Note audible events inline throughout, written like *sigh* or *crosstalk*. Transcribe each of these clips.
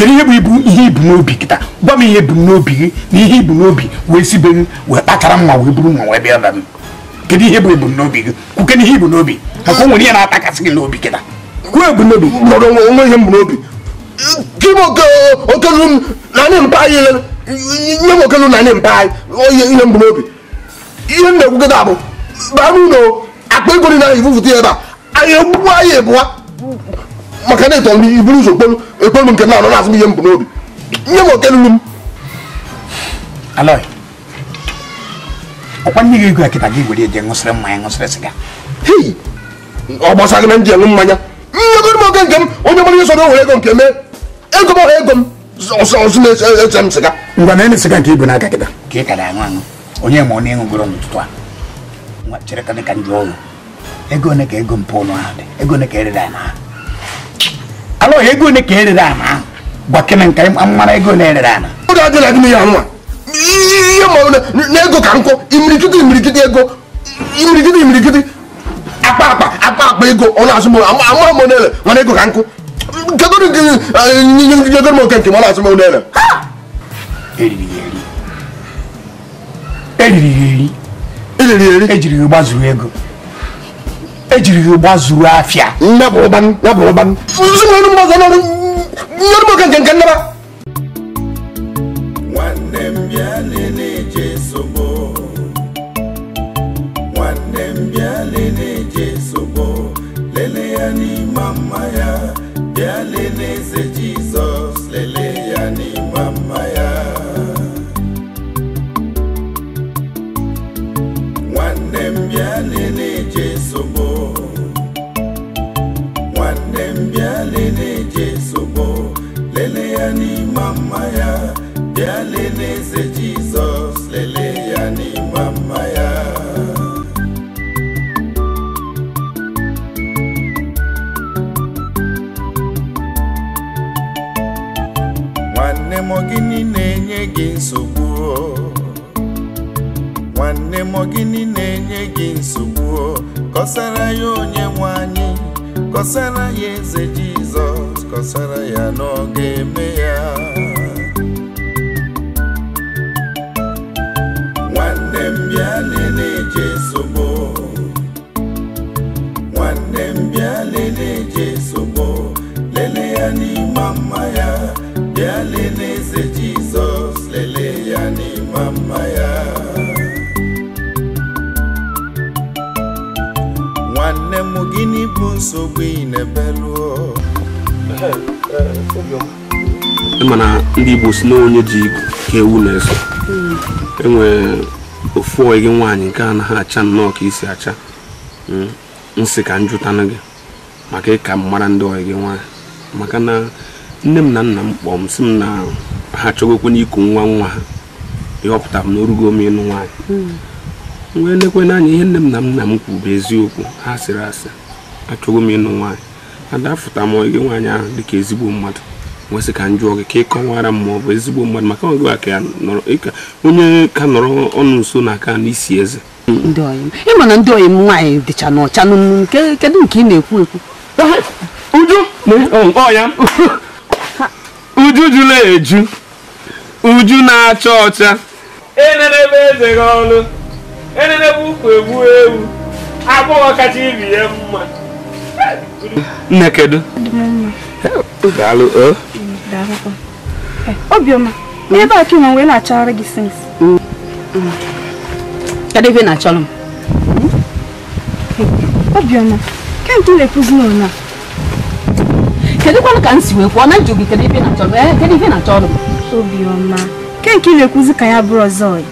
kedu ihe bụ ibu ihe ibu n'obi kịta gwa m ihe ibu n'obi gị na ihe ibu n'obi wee si be m wee kpachara mma wee buru mma wee bịa ba m kedu ihe bụ ebumnobi gị kwuke na ihe ibu n'obi maka o nwere ihe na-atakasị gị n'obi kịta kwuo ebumnobi mmadụ onwe ihe mbụ n'obi kim okelu m na anyị mpa anyị nye m okelu na anyị mpa anyị oye ihe mbụ n'obi ihe m na-ekwukọta bụ baa n'ụlọ akpa ego dị na ifufuta ebe a anyị egbugbu anyị ebụwa maka na ịtọrọ e m iburu ụzọ kpolu ekpolu nke na-anọ na-azụ m ihe m bụ n'obi nye m oke lulu m alọị ọkwa nye gị ego akịta gị were eje ṅụsịrị mmanya ṅụsịrị sịga hei ọ gbasara na ndị mmanya mmegoro m oge nke m onye mara ihe were ego nke mee ego m ego m na m sịga ngwa na-enye nke ibu n'aka kịta ka ị kara na a ka dị ka ndị ọrụ ego ka ego ụlọ ahụ dị ego alụ ya ego ole ka erere ana ahụ gwakene nka mara ego na-erere ana oge adịla gị ya nwa ihe ma na ego ka nkụ imirikiti imirikiti ego imirikiti imirikiti akpa akpa akpa akpa ego ọnụ azụ amara m onele mana ego ka nkụ jegoro m oke nke m ọnụ azụ m onele eriri ya eri eriri ya eri ejiri ya gbazuru ego ejiri ụgba zuru afịa nwanne lele ya n'ime mma ya bịa Jizọs lelee nwanne m bịa Jesu bụ lelee ya n'ime mma ya bịa lelee eze Jesus. kọsara ya eze Jizọs kọsara ya n'oge eme mana ndị Igbo si na onye ji ka ewu na-eso hmm. enwere ofu oyi gị nwaanyị nke ha acha nnọọ ka isi acha hmm. nsị ka njụtanụ gị maka ịka m mara ndị oyi gị nwaanyị maka na nne m na nna m kpọọ m si m na ha chọgokwe n'iku nwa nwa ha ịhọpụta m n'orugo m ịnụ nwaanyị hmm. wee lekwe n'anya ihe nne m na nna m kwu bụ eziokwu ha sịrị asị achọgo m ịnụ nwaanyị adafụta m oyi gị nwaanyị ahụ dịka ezigbo mmadụ nwesị ka m gị ka ị kọwara m ma bụ ezigbo mmadụ maka ọ gịwa ka ya onye ka nọrọ ọnụ nso na aka n'isi eze ị na ndị oyi nwaanyị dịcha n'ọcha n'ụnụ kedu nke ị na-ekwu ekwu uju ọya uju jụla eju uju na-acha ọcha enenebe eze gị ọlụ enenebe ukwu egbu ewu agbọghọ kacha ibi ya mma nne kedu daalụ eh, obiọma ebe a chuma wee na gị sins kedebe na-achọrọ m obiọma kemgbe na-ekwuzi ka na njụ gị ọ na-achọrọ kedu na-achọrọ m obiọma ke nke ị na-ekwuzi ka ya bụrụ ọzọ ọyị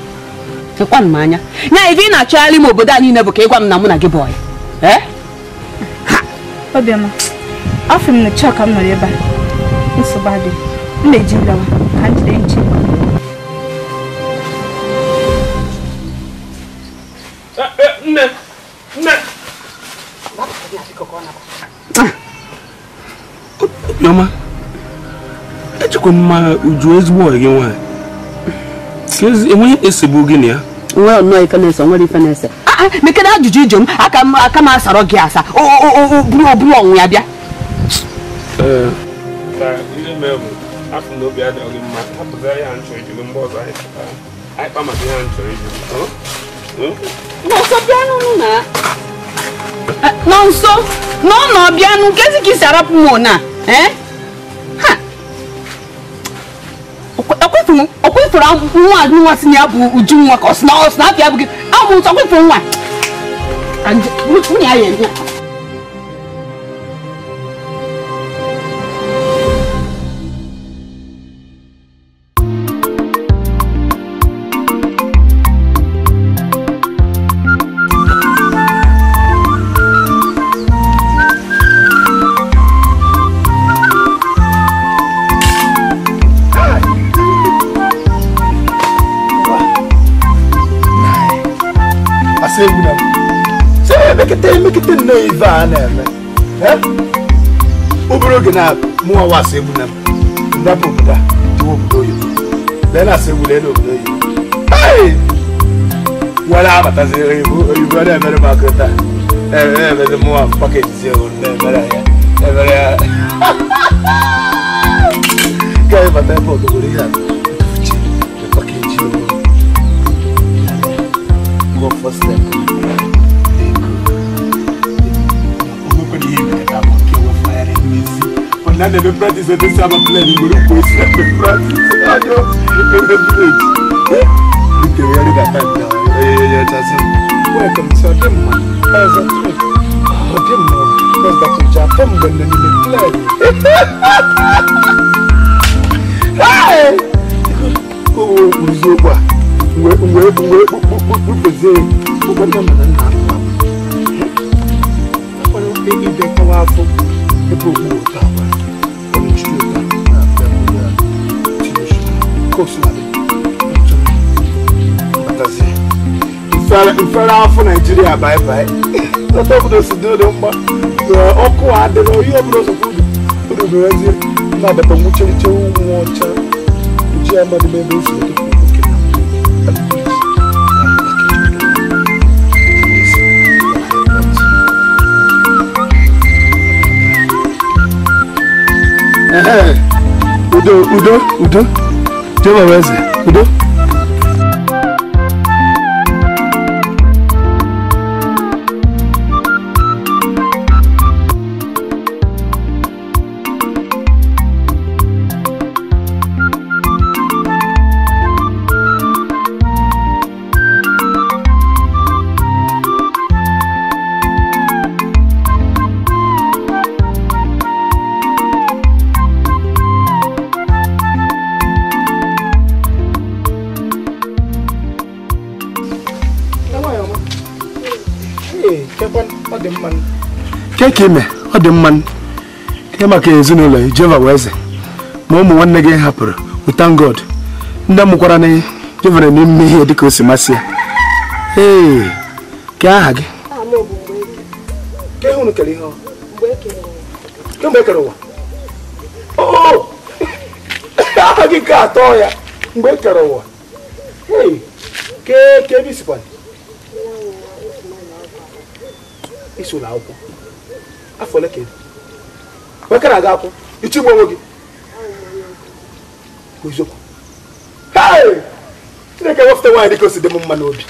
m anya ya na-achọgharị m obodo a niile bụ ka na mụ na gị afọ m na chọka m nọrọ ebe a nsogbu adị m na-eji lawa ka m jide nche eh, eh, nne nne Yoma, ah, echekwa mma uju ezigbo ọyị gị nwaanyị enweghị esogbu gị na ya nwere nnọọ ife na-ese nwere ife na-ese ah, ah, mekere ajụjụ ijom aka m asarọ gị asa bụrụ ọnwụ ya bịa ka ndị mebụ afọ na obi adịghị mma hapụta ya nchọ ijiri mgbe ọzọ anyị pụtara anyị kpa maka ihe nchọ ijiri nọnsọ bịanụ na e, nọnsọ n'ọnọ bịanụ nkezi ka isi arapụ m na ọkwefere e? nwa nwa si ya bụ uju nwa ka ọ sị na abịa abụghị abụ nsọ ọkwefere nwa nwunye ya ya mu wọn wɔ asɛm nam ndapo buda ti wɔ budo yi lɛn asɛm lɛn wɔ budo yi ɛɛ wala abata se oyibo oyibo ɛdɛ mɛri ma kɛta ɛɛ ɛɛ mɛri mu wa pakɛti se o lɛ mɛri ayɛ ɛ mɛri ayɛ kɛyɛ bata yɛ pɔ dogori yɛ tuuti ɛ pakɛti o kɔ fɔ sɛ. na na ebe practice ete si aba plan igbo n'ukwu esi ebe practice ajo ebe village nke wari da time na oye ya chasi welcome to ọdị mma ọzọ trip ọdị mma ọzọ tụcha afọ mgbe na n'ime plan owo oziokwu a mgbe mgbe mgbe kpukpezie ụgwọ nne m na nna akwa akwa onye ibe kọwa afọ Epo bye. wo udo udo udo jehova weze udo. ike ime ọ dị mma ihe maka ezinụlọ jehova wee eze ma ụmụ nwanne gị hapụrụ wụtan god ndị mụkwara na jehova na n'ime ihe dịka o si masị ya ee ka aha gị aha gị ka atọ ya mgbe e kere ụwa ke ebe isikwa iso na akwụkwọ fọlẹ́ kẹ́ni bekee aga akwụ onwe gị m mma n'obi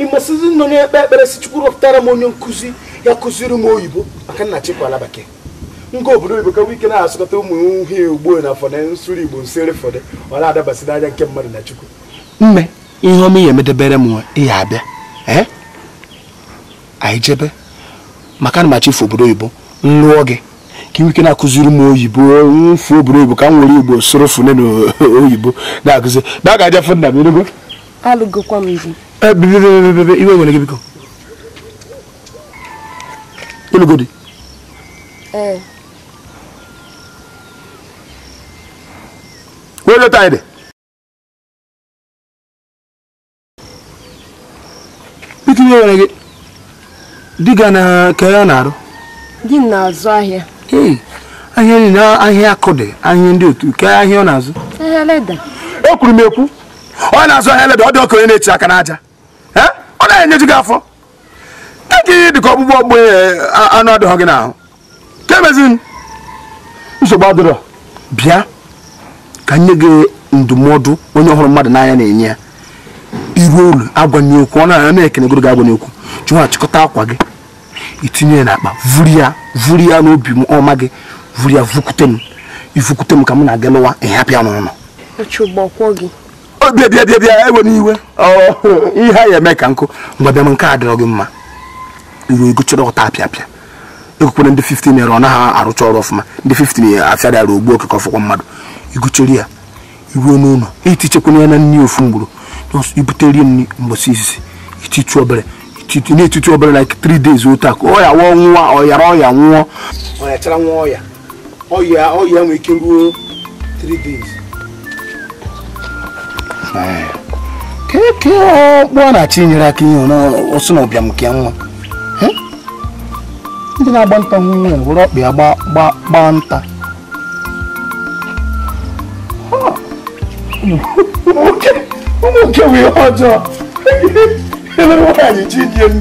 ị masịzi nọ ekpe ekpere si chukwu rọpụtara m onye nkụzi ya kụziri m oyibo maka nna chikwa ala bekee obodo oyibo ka ike na-asụkọta ụmụ uhie ugbo na fọdụ igbo nsere fọdụ ọ na-adabasị nke mmadụ na chukwu mme ihe ọmụ ya medebere m ihe abịa ee anyị maka na fu obodo oyibo lụọ gị ka iwike na-akụziri m oyibo mfu obodo oyibo ka m nwere igbo soro fune na *laughs* oyibo na-akụzi na a ga-aja fụ m enugo alụgokwa m iwu eh, iwe nwere gị biko ịlụgo di wee anyị dị biko iwe nwere gị di gị na ka ya na-arụ di na-azụ ahịa ahịa niile ahịa akụ dị ahịa ndị otu ke ahịa ọ na-azụ o e kwuru m ekwu ọ na-azụ ahịa leda ọ dị ọka onye na-eti aka n'aja ọ na-enyeju enye gị afọ ekeghị dị ka ọgbụgbọ ọgbụ e, anụ adịghị gị n'ahụ ka emezi nsogbu adịrọ bịa ka nye gị ndụmọdụ onye ọhụrụ mmadụ n'anya na-enye ya iru olu agwanye okwu ọ na-ana ekenegoro gị agwanye okwu chụwa chịkọta akwa gị itinye ya n'akpa vuri ya vuri ya n'obi ọma gị vuri ya vukute m ivukute m ka m na-aga lụwa ịhapịa n'ụlọ obi bịa bịa bịa ewe n'iwe ihe a ya eme ka nkụ mgbe bịa m nke a dịrọ gị mma iru egochara ọta apịapịa ekwekwere ndị 15 naira ọ naghị arụcha ọrụ ọfụma ndị 15 afịara arụ ogbu okeke ọfụkwa mmadụ igocheri ya iruo n'ụlọ itichekwana ya na nri ofu mgburu nso ibute rie nri mgbọsi isi ititu obere ititu na-etitu obere like three days otu akụ ọya wụọ nwa ọyara ọya nwụọ ọya chara nwa ọya ọya ọya nwee ike ruo three days keke eh. ọkpụọ oh, na-achị nyere aka ihe ọsụ na ọbịam nke nwa eh? ndị na-agba nta nwa were ọkpa ya gbaa nta Okay. Ụmụ nke wee ọjọọ. Ele nwaanyị ji dị elu.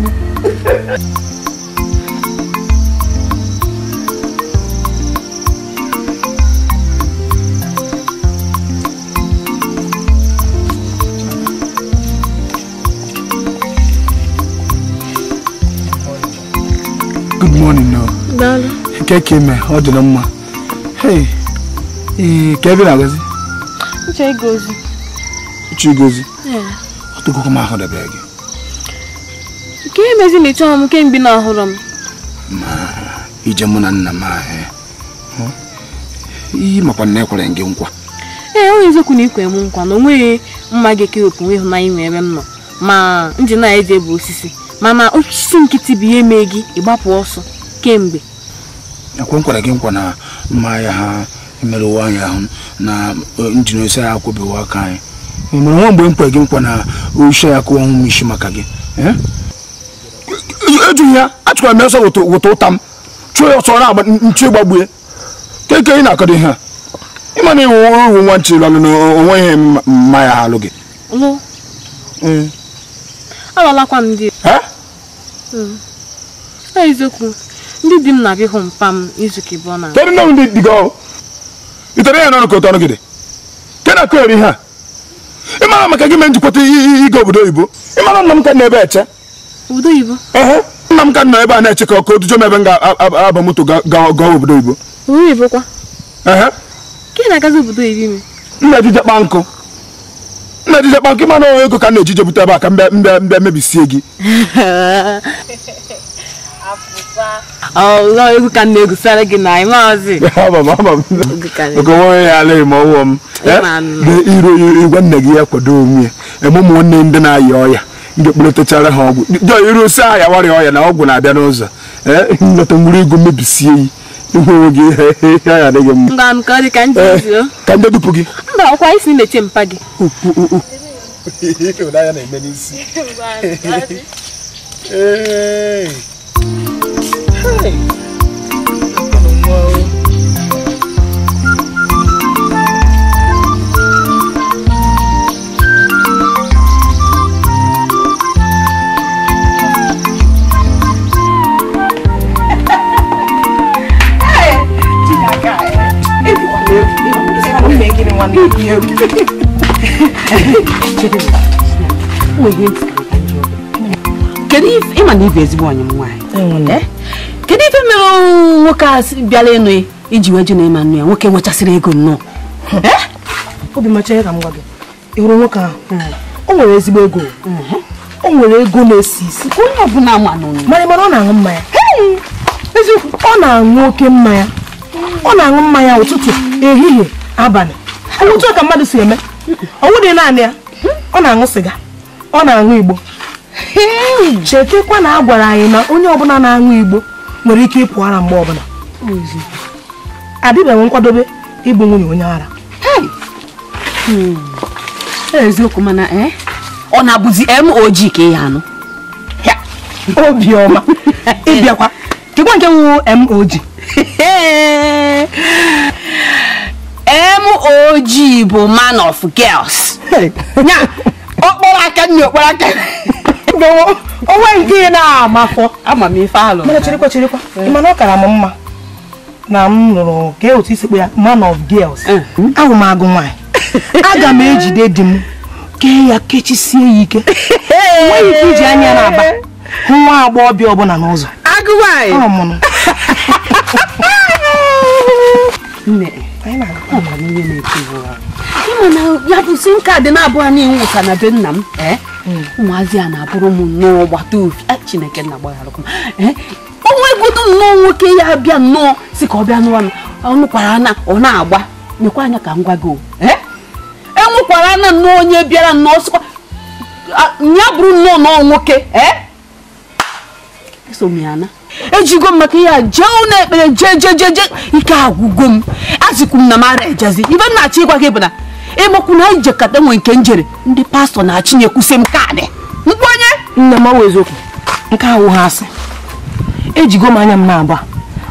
morning, no. Daalụ. Nke ka ime, ọ dịrị mma. Hey, ee, ka ebe na-agazi? Chigozie ọtụgokwa m ahụ ahụdebe gị nke emezi na ịchọghị m kemgbe na ahụrụ m ma ije mụ na nna m ahụ eh? iyi makwa na ekwere gị nkwa ee onye eziokwu na ikwe m nkwa na onweghị mma ga-ekewepụ nwe ịhụnanya nwere ebe m nọ ma nji na eji bụ osisi mana osisi nkịtị bụ ihe mee gị ịgbapụ ọsọ kemgbe ekwe nkwere gị nkwa na mma ya ha emerụ ụwa anyị ahụ na njin osi akwụbeghị aka anyị nwere nwa mgbe m gị nkwa na oche ya kụọ ọnwụ isi maka gị eh? ejughị ya achụkwara m ya ọsọ wụta ụta m chụọ ya ọsọ na-agba nchi gbagbue keke ị na-akọdo ihe a ịma na iwu nwa nwa nchi lalụ na onwe ihe mma ya alụ gị ndị dị gị ọrụ ya ka ke na-akụ ihe a ịmara maka gị mee njikwata ịga obodo oyibo ịmara nna m ka na-ebe eche nna m ka nọ ebe a na-eche ka ọkụ dujo m ebe m ga-aba moto gaa obodo oyibo nna ejije kpa nkụ nna ejije kpa nkụ ịmara ego ka na-ejije bute ebe a ka mbe mbe mebisie gị *laughs* egwu ka m na gị na ịmazi nwe ya ala ọwụọ gwa nne gị ya kwado onwe ya eme ndị na-ayị ọya ndị kpụletachara ha ọgwụ jọ irusi ahịa warịa ọya na ọgwụ na-abịa n'ụzọ nlọta nwere ego mmebisie yi ihe adịghị ndị Hi. you. Kedụ ife ị ma na ibe ezigbo onye m nwaanyị? kedu ife mere ọnwụ nwoke a bịara ịnụ iji wee jụ na ịma nnu ya nwoke nwechasịrị ego nnọọ eh? obi macha ya ka m gwa gị ịhụrụ nwoke ahụ hmm. o nwere ezigbo ego hmm. o nwere ego na-esi isi onye ọbụla mara mara ọ na-aṅụ mmanya eziokwu ọ na-aṅụ oke mmanya ọ na-aṅụ mmanya ụtụtụ ehihie abalị hmm. otu ka mmadụ si eme ọ wụdị naanị ya ọ na-aṅụ sịga ọ na-aṅụ igbo chetekwa na a gwara anyị na onye ọbụla na-aṅụ igbo nwere ike ịpụ ara mgbe ọbụla adịbeghị nkwadobe ịbụ nwunye onye ara hmm. eziokwu mana eh? ọ na-abụzi MOG ka *laughs* ị anụ obiọma ịbịakwa kekwa nke wụ MOG *laughs* MOG bụ man of girls ya okporo aka nne okporo aka onwe nke ị na afọ. amamife alụ mana chirikwa chirikwa eh. mana ọ kara m mma na m nụrụ ka otu isi ya man of girls eh. ahụ m agụ nwaanyị *laughs* aga m ejide di m kee ya kechisie ya ike eh. nweghị ike iji anya na-aba hụ nwa agbọghọbịa ọbụla n'ụzọ ịma *laughs* na ya bụ sim kaadị na na-abụghị n'iwu ka na be nna m ụmụazị a na-abụrụ m nnọọ gbata ofi eh, chineke nna gbagharụkwa eh, onwe godo nnọọ nwoke ya bịa nnọọ si ka ọ bịa n'ọnụ ọnụkwara na ọ na-agba mekwa anya ka m gwa gị enwekwara eh, e na nnọọ onye bịara nnọọ sịkwa ah, ya bụrụ nnọọ nnọọ nwoke eso m ya na ejigo m maka ihe a jee ụlọ ekpere jee jee jee ike agwụgo m azikwu m na mara ejezi ibe m na-achọ ịgwa gị bụ na na anyị jekata nwe nke njere ndị pastọ na-achịnye kwụsị m kaadị nkwanye. nne m ọwa eziokwu nke ahụ ha asị ejigo m anya m na-agba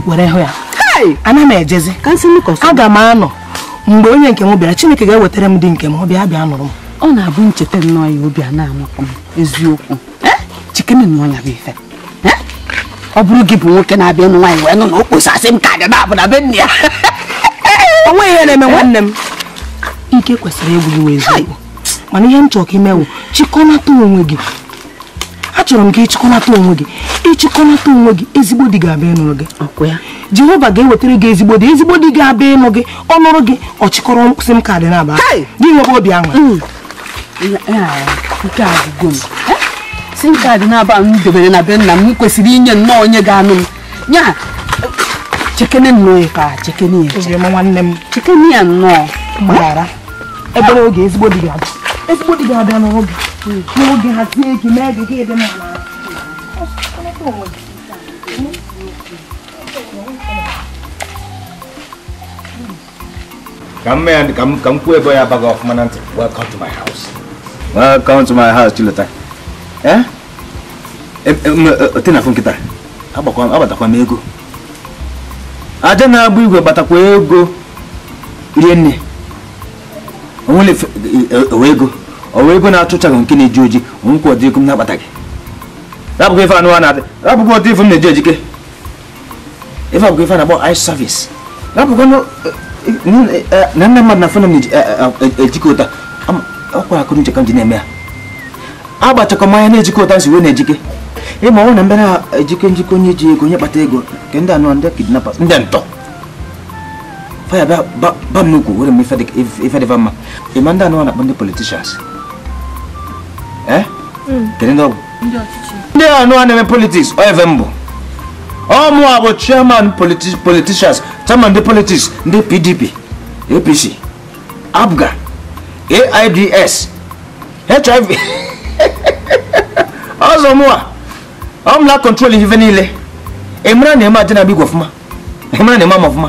were hụ ya ana m ejezi aga m anọ mgbe onye nke m bịara chineke ga-ewetara m dị nke m bịa bịa nụrụ m ọ na-abụ ncheta nnọọ ya obi a na-amakọ m eziokwu chikene na ọnya bụ ife ọ bụrụ gị bụ nwoke na-abịa ịnụ nwaanyị wee nụ na okposasị m ka dị na abụ na be nne ya onwe ihe na-eme nwanne m ike kwesịrị egwu gị eziokwu mana ihe m chọrọ ka imewu chịkọnata onwe gị achọrọ m ka ịchịkọnata onwe gị ịchịkọnata onwe gị ezigbo di ga-abịa ịnụrụ gị jehova ga-ewetara gị ezigbo di ezigbo di ga-abịa ịnụ gị ọ nụrụ gị ọ chịkọrọ mkpịsị m ka dị n'aba gị nwere obi aṅụ sim kaadị na-aba m debere na be nna m kwesịrị inye nnọọ onye ga-anụ m ya chekene nnọọ ya ka chekene ya nwanne m chekene ya nnọọ gbaghara ebe n'oge ezigbo di ga-abịa ezigbo di ga-abịa n'oge n'oge hazie ike mee gị gị dị n'ala ka mma ya ka m kwuo ebe ya abaghị ọfụma na ntị welcome to my house welcome to my house chilota eh? e, e, e, tinafụ nkịta agbatakwa m ego aja na-agba igwe gbatakwa ego rie nne onwere eh, owe ego owe ego na-achụchaghị nke na-eji oji onwekwa ọdị ego m na-akpata gị rapụkwa ife anụwa na-adị rapụkwa ọdị m na-eji ojike ife ife na-akpọ ice service eh, eh, na nne mmadụ na fona m na-ejikọ ụta ọkwa akụrụ uche ka m ji na-eme ya agbachakọ na ụta si wee na-ejike ịma ọnwụ na mbara na-ejike njikọ onye ji ego onye kpata ego nke ndị anụwa ndị ndị ntọ paya ba ba ba mugu wurin mi fadik if if da vamma I'manda no nuna bende politicians eh mm. kene ndo ndo ya nuna ne politics o evembo o mu abo chairman politi politicians chairman de politics de PDP APC ABGA AIDS HIV ọzọ mụ a ọ mụla kọntrol ihe niile emere na-eme adị na-abịa igwe ọfụma emere na-eme ama ọfụma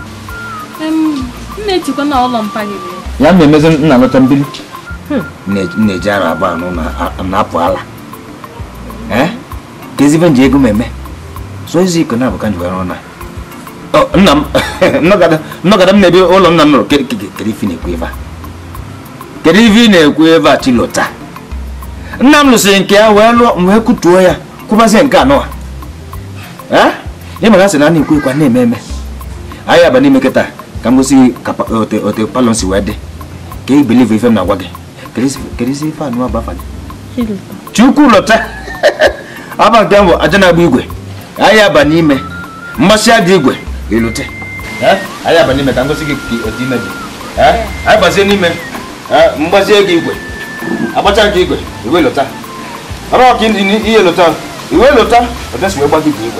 na-etikwa n'ụlọ ụlọ mpa ya ma emezi nna hmm. na-eji ara anụ na-apụ ala eh? ka nji ego meme soozi iko na-abụka njiwa ọrụ na nna m *laughs* nnọgada m na-ebi ụlọ nna m nụrụ na-ekwu chilota nna m lụsịrị nke ya wee lụọ wee kutuo ya kwụbazie nke anụwa eh? ịmara na a na-ekwu ekwa na-eme eme anyị aba n'ime kịta ka m gosi ka eh, otu palọ si wee dị ka ị believe ife m na-agwa gị kedu isi ife anụ agbafa gị chukwu lọta *laughs* aba nke mbụ aja na-agba igwe anyị aba n'ime mgbasị aja igwe ilute anyị aba n'ime ka m gosi gị otu ime dị anyị gbazie n'ime mgbazie gị igwe agbacha gị igwe iwe lọta ọrụ ọka ihe lọta iwe lọta ọdesi wee gba gị igwe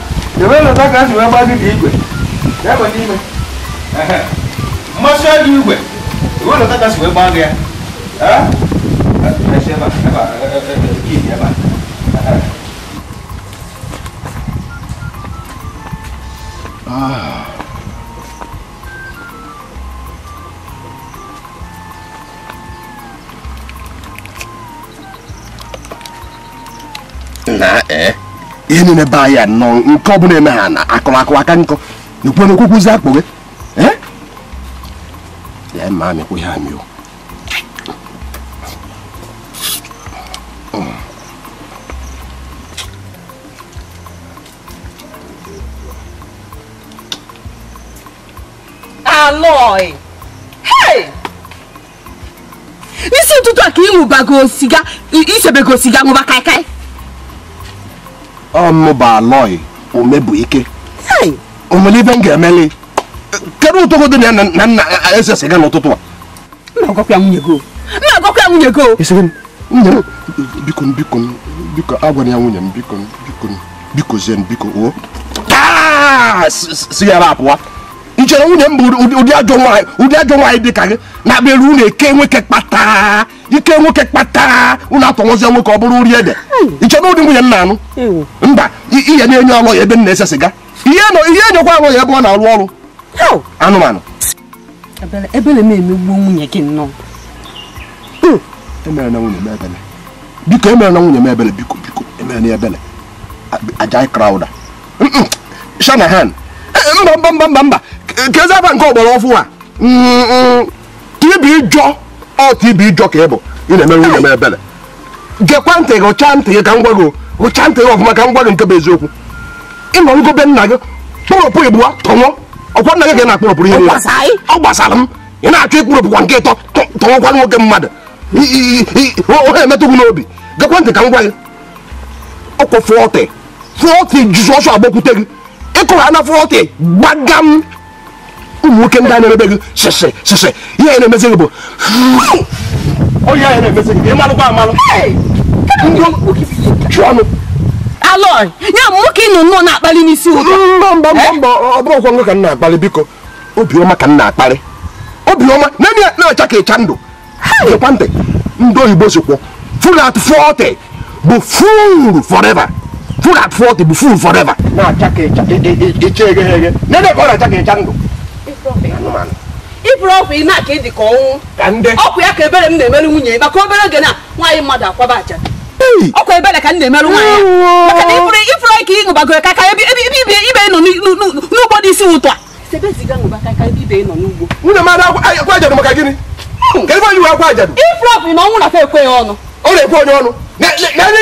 *laughs* ebelata ka wee dị igwe ebe n'ime mmasị ajọ igwe ebelata ka si wee gị ya Nah, eh. ihe niile be anyị nọ nke ọbụla eme ha na akụmakụ aka nkọ n'okwu onye okwukwuzi akpụ gị ya ma amịkwa ihe amịo Aloy! Hey! N'isi ụtụtụ a ka ị ṅụbago siga, isebego siga ṅụba kaikai. ọnụbalọi omebuike o nwere ibe m ga-emeli kedu ụtọgodo na na nna eze sịga n'ụtụtụ a na-agwakwa nwunye go na-agwakwa nwunye biko biko nwunye m ụdị ajọ nwaanyị dị ka gị na-abịa eru eke nweke kpata ike nwoke kpatara ụlọ atọnwụzie nwoke ọ bụrụ nri ede ịchọrọ ụdị nwunye m na-anụ mba ihe na-enye ọlọ ya ebe m na-ese sịga ihe enyekwa alọ ya ebe ọ na-arụ ọrụ anụmanụ hmm. e biko emere na nwunye m ebele biko biko emere na ebele ajai krauda shanahan mba mba mba mba mba ka eze aba nke ọgbara ọfụ a ka ibi jọ ọtụ ibu ịjọ ka ị bụ ị na-eme nwunye m ebere gekwa ntị gị ụcha ntị gị ka m gwa gị ụcha ntị gị ọfụma ka m gwa gị nke bụ eziokwu ịnọrụgo be nna gị kpụrụpụ igbuwa tọnwụ ọkwa nna gị ga na-akpụrụpụrụ ihe ọ gbasara m ị na-achọ ịkpụrụpụkwa nke ịtọ tọnwụkwa nwoke mmadụ ohe emetụgwu n'obi gekwa ntị ka m gwa gị ọkwụ fọtị fọtị jizọs agbakwute gị ịkụrụ ana fọtị gbagam ụmụ nwoke ndị a na-erebe gị sheshe sheshe ihe a na-emezi gị bụ onye na-emezi gị ịmalụkwa amalụ ya nwoke ịnụ nnọọ na-akpali n'isi ụtọ mbọ mbọ mbọ mbọ ọ bụrụ ọkwa ka m na-akpali biko obiọma ka m na-akpali obiọma naanị ya na-acha ka ịcha ndụ gekwa ntị ndị oyibo sikwo full at 40 bụ full forever full at 40 bụ full forever na-acha ka ịcha ndụ iburu ọgwụ ime a ịdị ka ọnwụ ya ka ebere m na-emere nwunye maka obere oge na nwaanyị mmadụ akwaba aja ọkwa ebere ka m na-emerụ nwaanyị maka na ifuru ifuru ka ị ṅụbagoro ka ka ebe ibe ibe nọ n'ugbo dị isi ụtọ a nwunye mmadụ akwa ajadụ maka gịnị hmm. ka ebe onye akwa ajadụ na ọnwụ ọnụ ọ na-ekwe ọnụ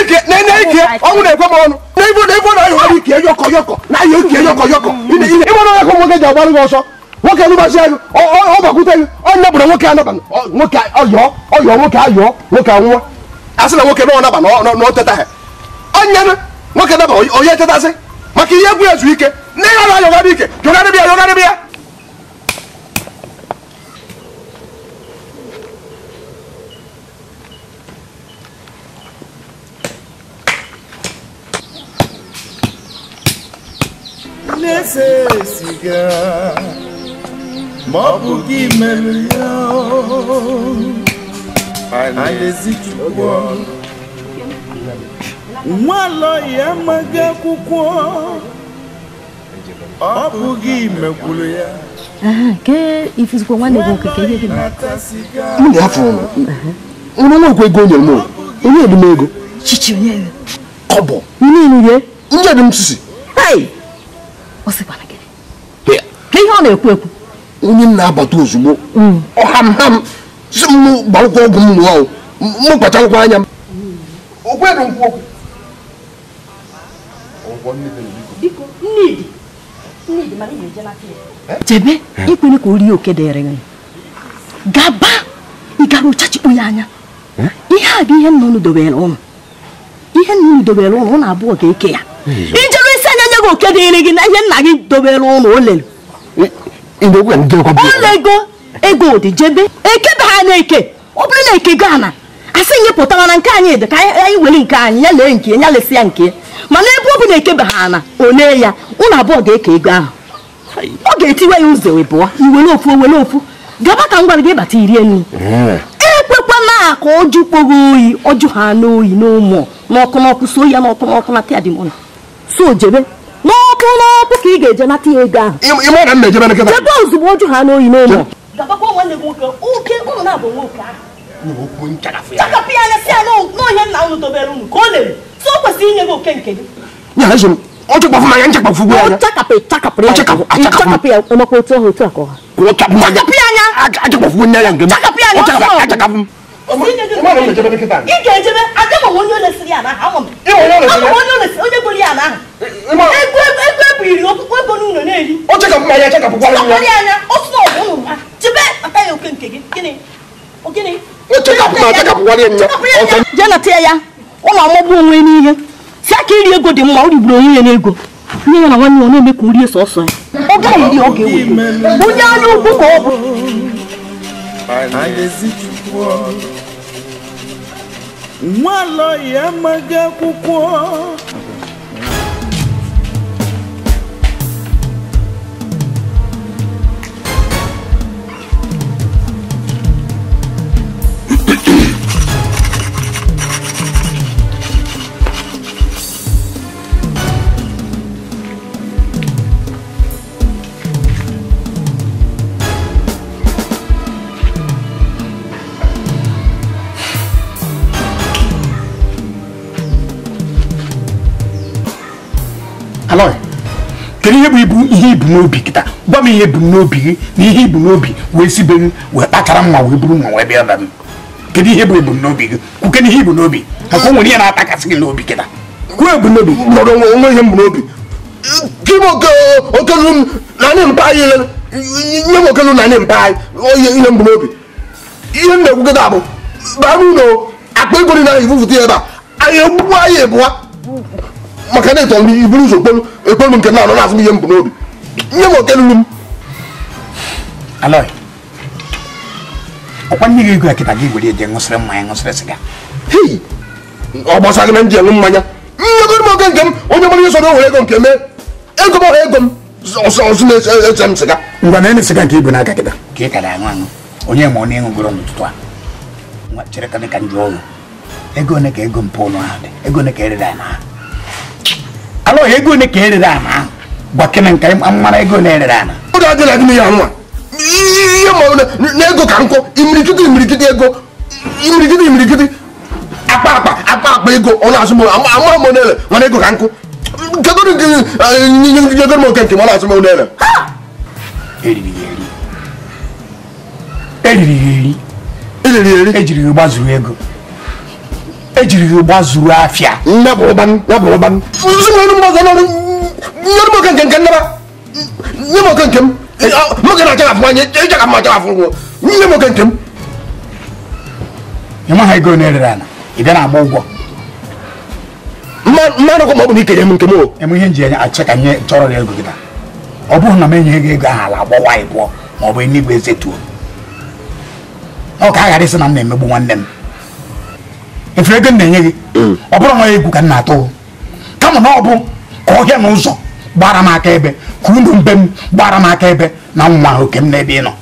ike na-ekwe ọnụ na na na ike yọkọ yọkọ na ike yọkọ yọkọ nwoke alụbachi anyị ọgbakwute gị onye bụrụ nwoke anaba nwoke ọyọọ ọyọọ nwoke ayọọ nwoke anwụọ asị na nwoke nọọ naba na ha onye nwoke naba onye tetasị maka ihe egwu ezu ike na ihe ayọgharị ike jọgharị bịa yọgharị bịa Necessigar ma ọ bụ gị mere ya anyị ezichukwu nwaala ya amaghị akwụkwọ ọ bụ gị mekwuru ya ifizikwa nwanne gị okike ihe gị m ga-afụ ụnụ nwa ego nyere m onye ego chichi onye kọbọ niile ndị edim sisi ọ sịkwana gị ihe ọ na-ekwu ekwu onye mm. m na-abata ozugbo ọhamham si m ọgwụ m nụọ m anya m chebe ikwere ka o rie oke dịrị gị gaba ịgara ụchachikpu ya anya ihe a bụ ihe dobere ihe nnụnụ dobere ụnụ ụnụ abụọ ga-eke ya ijere isi anya nye gị oke dịrị gị na ihe nna gị dobere ụlọ o lere ụlọ ego ego odijebe ekebe ha na-eke ọ bụrụ na eke gaa na asị nye pụtara nke anyị dị ka anyị were nke anyị ya lee nke ya lesị ya nke mana ebe ọ bụ na ekebe ha na onee ya ụlọ abụọ ga-eke ego ahụ ọ ga-etiwe ya ụzọ wee pụọ iwere ofu owere ofu gaba e ka m gwara gị ịbata irie nri ekwekwana ka ọjụ kpọrọ oyi ọjụ ha oyi n'ụmụ n'ọkụ n'ọkụ so ya n'ọkụ n'ọkụ na tịadimụna so jebe ọkụ n'ọkụ ka ị ga-eje nata ya ego ahụ jebe ozugbo oju ha n'oyi n'ụlọ chakapụ ya anya si ya n'ọhịa nna unu dobere unu ka ọ na so o kwesịrị inye gị oke nke gị ọchakpafụ m anya nchakpafụ gbu anya chakapụ ya chakapụ ya otu ahụ otu akọ ha chakapụ ya anya achakpafụ m ị ga-ejebe m onye ya m onye bụrụ eh, eh, na-eri na ya oke nke gị gịnị ya ụlọ ọmụgbụ onwe n'ihe si aka iri ego dị mma o onwe ya n'ego nne ya na nwanne ya na-eme ka o sọsọ ya ọ gaghị iri ọ onye anya ọ bụ Mwalo ya maga alọghị kedu ihe bụ ibu ihe ibu n'obi kịta gwa ihe bụ n'obi gị na ihe ibu n'obi wee sibe be wee kpachara mma wee buru mma wee bịa ebe kedu ihe bụ ebu n'obi gị kwuke n'ihe ibu n'obi maka o nwere ihe na n'obi kịta kwuo ihe m n'obi okelu mpa okelu mpa ihe n'obi ihe bụ akpa maka na ịtọrọ iburu ụzọ kpolu ekpolu nke na anọ na azụ ihe mbụ n'obi nye m oke lulu m alọi ọkwa nne gị igwe kịta gị were eje ṅụsịrị mmanya ṅụsịrị sịga hei ọ gbasa gị na nji enwe mmanya nyegoro m oke nke m onye mara ihe sọrọ were ego nke mee ego m ọha ego m ọsụ na-eche m sịga ngwa na ene sịga nke ibu n'aka kịta ka ị ka da aṅụ aṅụ onye ma ọ na-enwegoro n'ụtụtụ a chere ka dị ka njọ ọrụ ego ole ka ego mpụ ụlọ ahụ dị ego ole ka erere ya n'ahụ alụghị ego ole ka erere ana ahụ gwa gịnị nke mara ego ole erere ana ụda dị na gịnị ya nwa ihe ma na ego ka nkụ imirikiti imirikiti ego imirikiti imirikiti akpa akpa akpa akpa ego ọ na-asụ m ama m onele mana ego ka nye kedụ nyegoro m oke nke m ọ na-asụ m onele eriri ya eri eriri ya eri ejiri ya gbazuru ego ejiri gị zuru afịa ịmaha ego na-erere ala ị bịa na-agba ụgwọ mmanụ ọkụ ma ọ bụ na ikere m nke m eme ihe nji anya achị ka nye chọrọ ego gị ọ bụghị na m enyeghị gị ego ahụ ala agbawa ịbụọ ma ọ bụ enigwe ezetuo ọ ka a ghara isi na m na-emegbu nwanne m efu mm. ego na-enye gị ọ bụrụ nwa ya egwu ka m na-atụ kama na ọ bụ ka ọhịa n'ụzọ ụzọ gbara m aka ebe ka unu mbe m gbara m aka ebe na nwa oke m n'ebe ị nọ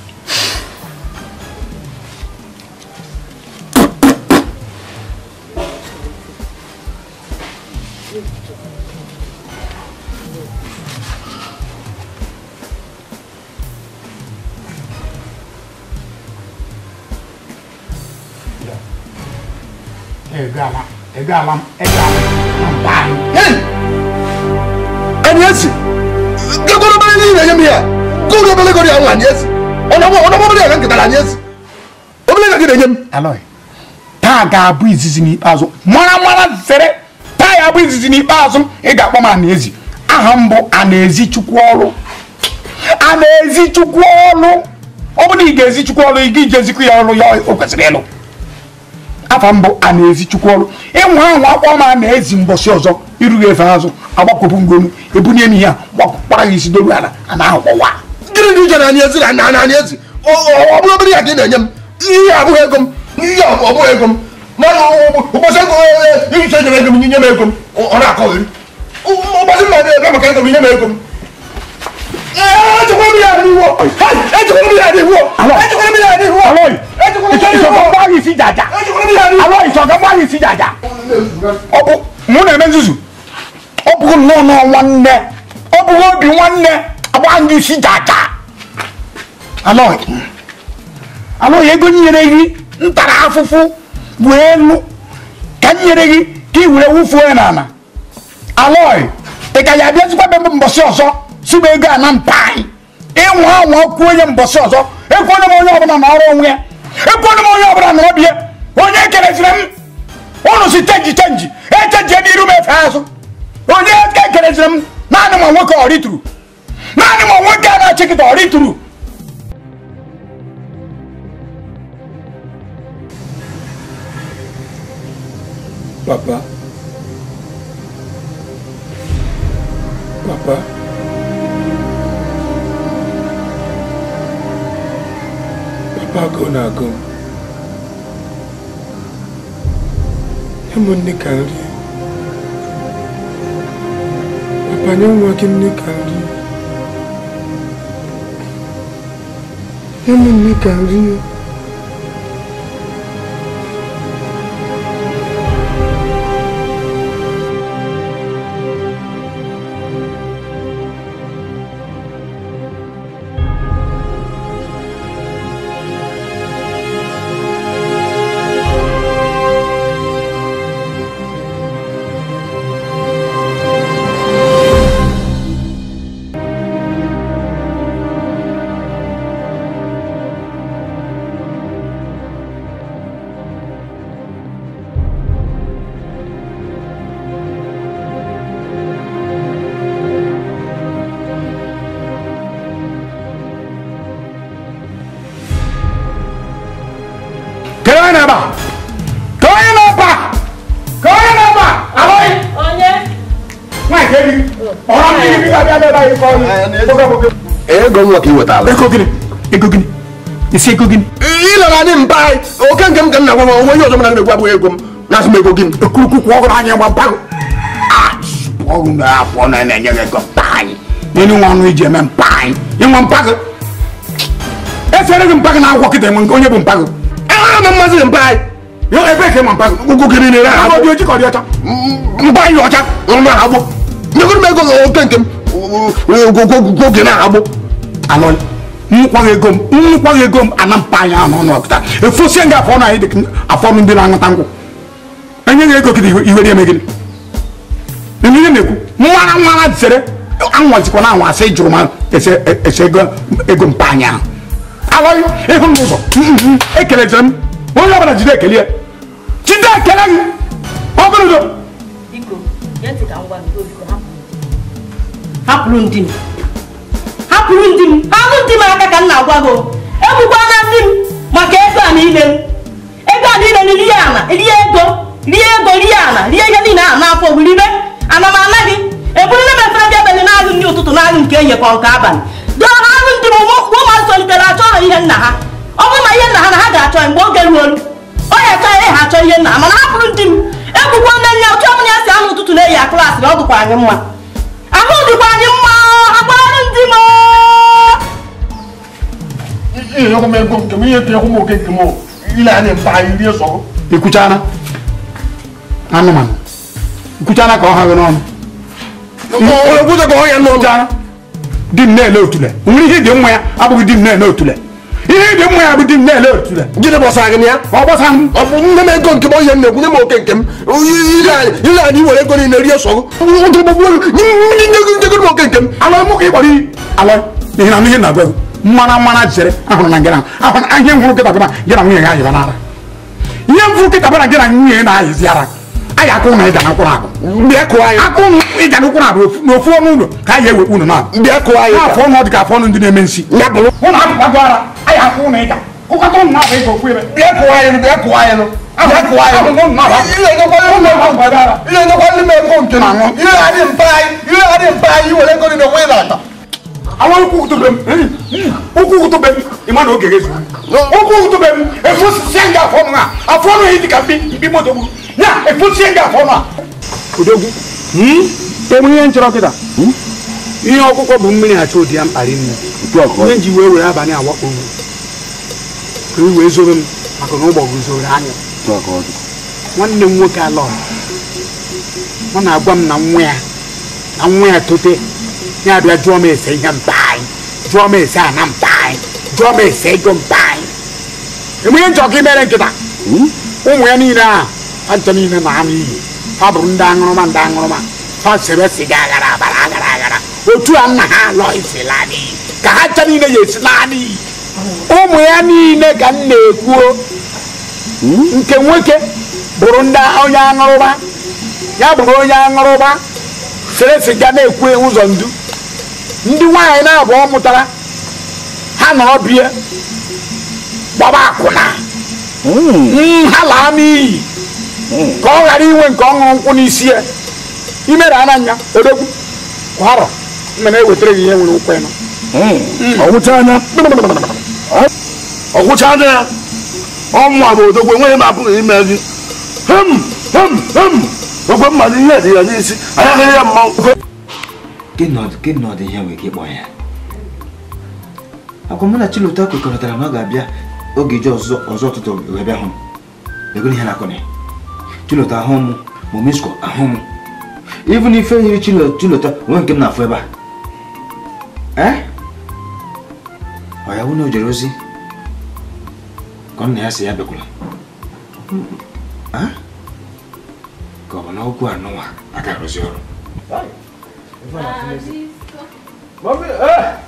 ẹgbẹ́ alam ẹgbẹ́ alam bá mi. ẹni ẹsì gẹgọdọ bẹẹ ní ìrẹyẹ mi yẹ gọdọ bẹẹ lẹgọdọ yàrá ni ẹsì ọdọmọ ọdọmọ bẹẹ yàrá nkìtàlá ni ẹsì ọbẹlẹ yàrá kìtàlá ni ẹsì. alọye taa ga-abụ izizi n'ikpeazụ mara mara zere taa ya abụ izizi n'ikpeazụ ị ga-akpọ m anaezi aha m bụ anaezi chukwu ọrụ ọ bụrụ na ị ga-ezi ọrụ ị ga-ijezikwu ya ọrụ ya o kwesịrị ịlụ afa mbụ a na-ezi chukwu ọrụ ịnwa ahụ akpọ ma na ezi mbọsị ọzọ irughị efe azụ agbakọpụ ngonu ebunye m ihe a gbakpara ya isi doru ala a na-ahụkpọwa gịnị dị ije na anyị ezi na na anyị ezi ọ bụrụ obere ya ka ị na-enye m ihe abụghị ego m ihe ọbụghị ego m mana ụbọchị ego e, e, ihicha nyere ego m nye m ego m ọ na-akọghị ụbọchị mmadụ ebe maka ego m nye m ego m mụ na-eme nzuzu ọ bụghị nnọọ nọọ nwanne ọ bụghị obi nwanne agba ndị isi jaja alọghị ego nyere gị ntara afụfụ wee elu ka nyere gị ka ị were wụfuo ya n'ala alọghị ị ka ya abịa zikwa be mbọsị ọzọ sumega na mpan ịnwa anwa kwuo onye mbọsị ọzọ ekwuo m onye ọbụla na ọrụ onwe ya ekwuo onye ọbụla na ọbịa onye kereziri m ụnụ si chenji chenji echenjie n'iru m efe azụ onye e kereziri m naanị ma nwoke ọ rituru naanị ma nwoke na-achịkịta ọ rituru Papa. Papa. agụ na-agụ m ụmụ nne ka nri banye nwa gị nne ka nri ụmụ nne ka nri yana ba ka yana ba ka yana ba aloi onye nwa nke gị ọrụ ndị gị ga-abịa n'ebe anyị kọọ ego nwa ka ị wetala ego gịnị ego gịnị isi ego gịnị ịlara anyị mba anyị oke nke m ka m na-agwa m onwe onye ọzọ m na-egwu abụghị ego m na-asụ m ego gịnị okurukwu ọgụrụ anyị gba mpa ah, ọrụ na-akwụ na na-enye gị ego mpa anyị nínú wọn ọnụ iji eme mpa anyị ịnwe mpa gị esere gị mpa gị na akwụkwọ mara na mmazi mba anyị yo ebe ka ma mpa ugwu gị niile ha agbo oji ka dị ọcha mba anyị ọcha na agbo nyegoro m ego oke nke m oge na agbo anọ nkwaghị ego m nkwaghị ego m ana mpa anyị anọ n'ọpụta efosie nga afọ anyị dị afọ ndị na-aṅụta nkwụ enyeghị ego gị na eme gịnị ihe na-ekwu nwara nwara anwazikwa na anwa asị jụrụ ma ese ego mpa anyị ahụ alọ yọ ehun mi bọ ekele jẹ mi wọn yọ bana jide ekele yẹ jide ekele yi ọbẹrẹ jọ. biko yẹn ti ka n gwa mi lórí ko hapụrụ ndị m hapụrụ ndị m hapụ ndị m aka ka m na-agwa gị egbukwa na ndị m maka ego a niile m ego a niile m rie ala rie ego rie ego rie ala rie ihe niile ahụ n'afọ bụ ribe ana m ana gị eburule m efere ndị abalị n'agụ ndị ụtụtụ n'agụ nke ehihie nke abalị dọrọ ndị m ụmụazị achọ ọrụ ihe nna ha ọ bụrụ na ihe nna ha na ha ga-achọ mgbe oge ruolu onye achọghị ha achọ ihe nna ha mana bụrụ ndị m egbukwa nne nne otu ọbụla ya si anụ ụtụtụ na-eyi aklasị na ọ anyị mma ahụ dịkwa anyị mma ndị m anụmanụ ka ọ ha nwere ọnụ di nne otule nwere ihe dị nwa ya abụghị di m na otule ihe dị mma ya bụ di nne otule gịnị gbasara gị ya ọ gbasara m ọ bụ nne m nke m onye m na-ekwu nye m oke nke m ile anyị were ego niile rie sọ oke ihe na ihe na-agwa mara na ayi akụ na ịda n'ụkwụrụ abụ mbịa kụọ anyị akụ na ịda n'ụkwụrụ abụ n'ofu ọnụ ụlọ ka anyị ewe unu na mbịa kụọ anyị n'afọ ọnụ ọ dị ka afọ ọnụ ndị na-eme nsi ya bụrụ hụ na akụkọ agụ ara ayi akụ na ịda kụkọta ụmụ na-abụ ịga okwu ebe mbịa kụọ anyị mbịa kụọ anyị Ilé ẹ̀dọ́gbọ́n lé mẹ́kọ̀ọ́ nkè nà ńwọ́n. Ilé adé mpa ayé, ilé adé mpa ayé wọlé mu a ka a. ihe nchọrọ ihe ọkụkọ bụ mmiri achọ ụdị ya mkpari nne ihe ji wee were abalị awakpo m ka i wee zobe m maka na ụgbọ guzoro anya nwanne m nwoke alọ ọ na-agwa m na nwa ya na nwa ya tote ya abịa jụọ m ese ihe jụọ ese ana mkpa anyị jụọ m ese jụ mpa anyị enweghị nchọ imere nkịta ụmụ ya niile ahụ ntọ niile na anụ iyi ha bụrụ ndị aṅụrụma ndị aṅụrụma ha sebe siga aghara abara aghara aghara otu a nna ha lọ isi laadị ka ha ncha niile ya esi laadị ụmụ ya niile ka m na-ekwuo nke nwoke bụrụ ndị onye aṅụrụma ya bụrụ onye aṅụrụma sere siga na-ekwu ụzọ ndu ndị nwaanyị na-abụọ mụtara ha na ọbịa gbaba akwụna hmm. nha laa n'iyi hmm. ka ọ ghara inwe nke ọṅụrụ nkwụ n'isi ya imere ananya odogwu kwarọ mmere ewetara gị ihe nwere ụkwụ ịnọ hmm. ọgwụchana ya ọnwa bụ odogwu enweghị m abụghị ime gị hem hem hem okwe mmadụ ihe dị ya n'isi anya ya mmanwụ agwa mụ na Chilụta kwekọrịtara na ọ ga-abịa oge ije ọzọ ụtụtụ wee bịa hụ m egoro ihe na-akọ Chilụta ahụ m ma Omesko ahụ m even ife yiri Chilụta onwe nke m na-afụ ebe a e? ọ ya wụna o ozi ka nna ya si ya bịakwala ka ọ bụ na okwu anụnwa aka arụzi ọrụ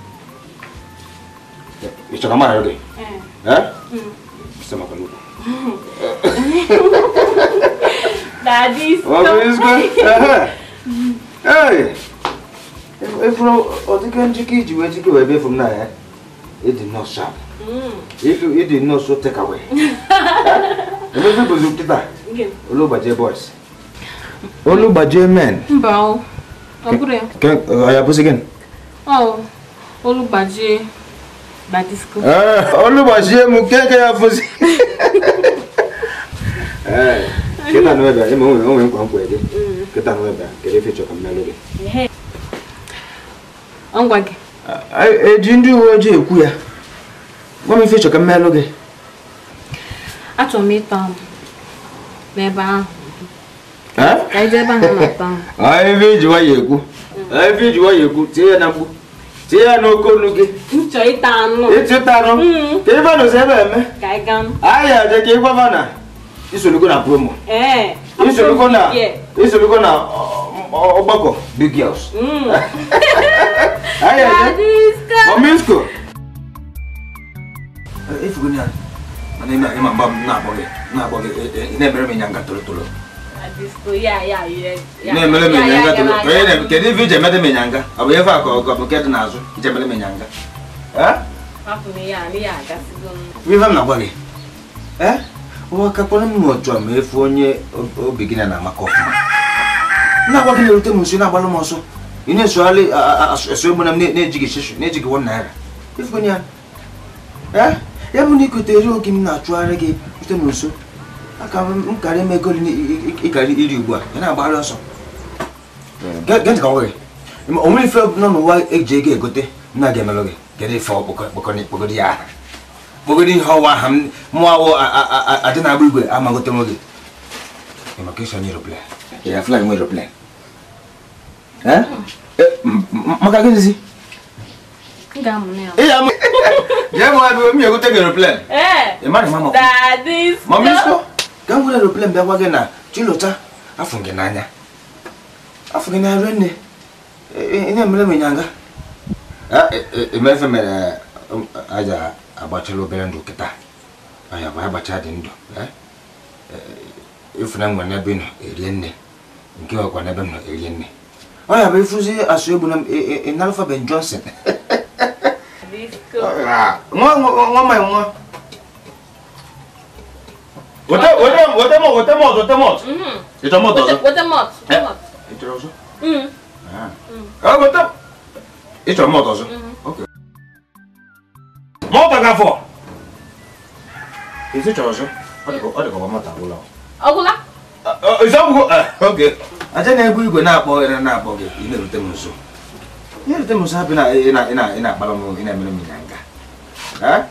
ita kama yau dai eh sai maka nuku daddy stop what is good eh efuro odike njike iji wee jike wee befu m na ya it did not sharp it, it did not so take away emefe bụzi nkịta olugbajie boys olugbajie men mba ọ bụrụ ya ọ olu m nke ya ebe eh? ma onwe onwe nkwa nkwa ya, kịta na ebe kedu ife gị ndị uwe ojii ekwu ya gwa m ife chọrọ mmelụ gị achọrọ m n'ebe ahụ ife nwayọ ekwu ife nwayọ ekwu tinye ya na ti ya na okonuge nchọ ịta anụ ịta anụ mm. ka ife na osebe eme anyị aje ka ịgwaba na isolugo na promo eh, isolugo na isolugo na ọgbakọ big girls anyị aje ominsko efugo ya mana ime anyị ma mgba m na-akpọ gị na-akpọ gị na-ebere m ịnya nga toro toro na ya ya ịnyanga ya na iji emede m ịnyanga ọ bụ ife akụ ọgọ bụ nke ya n'azụ ya. emere m na-agwa gị nwakakpọrọ m n'otu a efu onye na amaka ọfụma na-agwa gị na-erute m nso na-agbara ya ọsọ ị na-esogharị asụ egbe na m na-ejighị na-ejighị wọn naira ya ya eri oge m na-achụgharị gị m nso aka m karị ime ego ịkarị iri ugbu a ya na-agbara ọsọ gee ntị ka ọ nwere o nwere ife nọ n'ụwa eji ego egote nna ga-emelụ gị kedu ife kpogodi ya aha kpogodi ihe ọwa aha mụọ awụ adị na-agba igwe amagote nwe gị maka isonye eroplan ya flag nwe eroplan maka gịnịzi ya mụ abịa *laughs* mi egote gị eroplan ị mara mama mama isko ga m were aeroplane bịa gwa gị na chilụcha afọ gị n'anya afọ gị n'anya rue nne e, e, ihe mere m ịnyanga emefe e, mere um, aja agbachala obere ndụ kịta anya bụ agbacha dị ndụ ifuna eh? nwere n'ebe nọ erie nne nke ọkwa n'ebe m nọ erie nne ọnya bụ ifụzi asụ egbu na ịnalụfa ben johnson nwa nwa nwa Voltamos, voltamos, voltamos, voltamos. Estamos todos. Voltamos. Entramos. Ah, voltamos. Estamos todos. Ok. Monta, Gafo. Isso é todos. Olha como mata o lão. Agulá. Isabu, ok. Aja na-ebu igwe na-akpọ ere na-akpọ gị ị na-erute m nso. Ị na-erute m nso hapụ na ị na-akpara m ị na-emere m ịnya nga.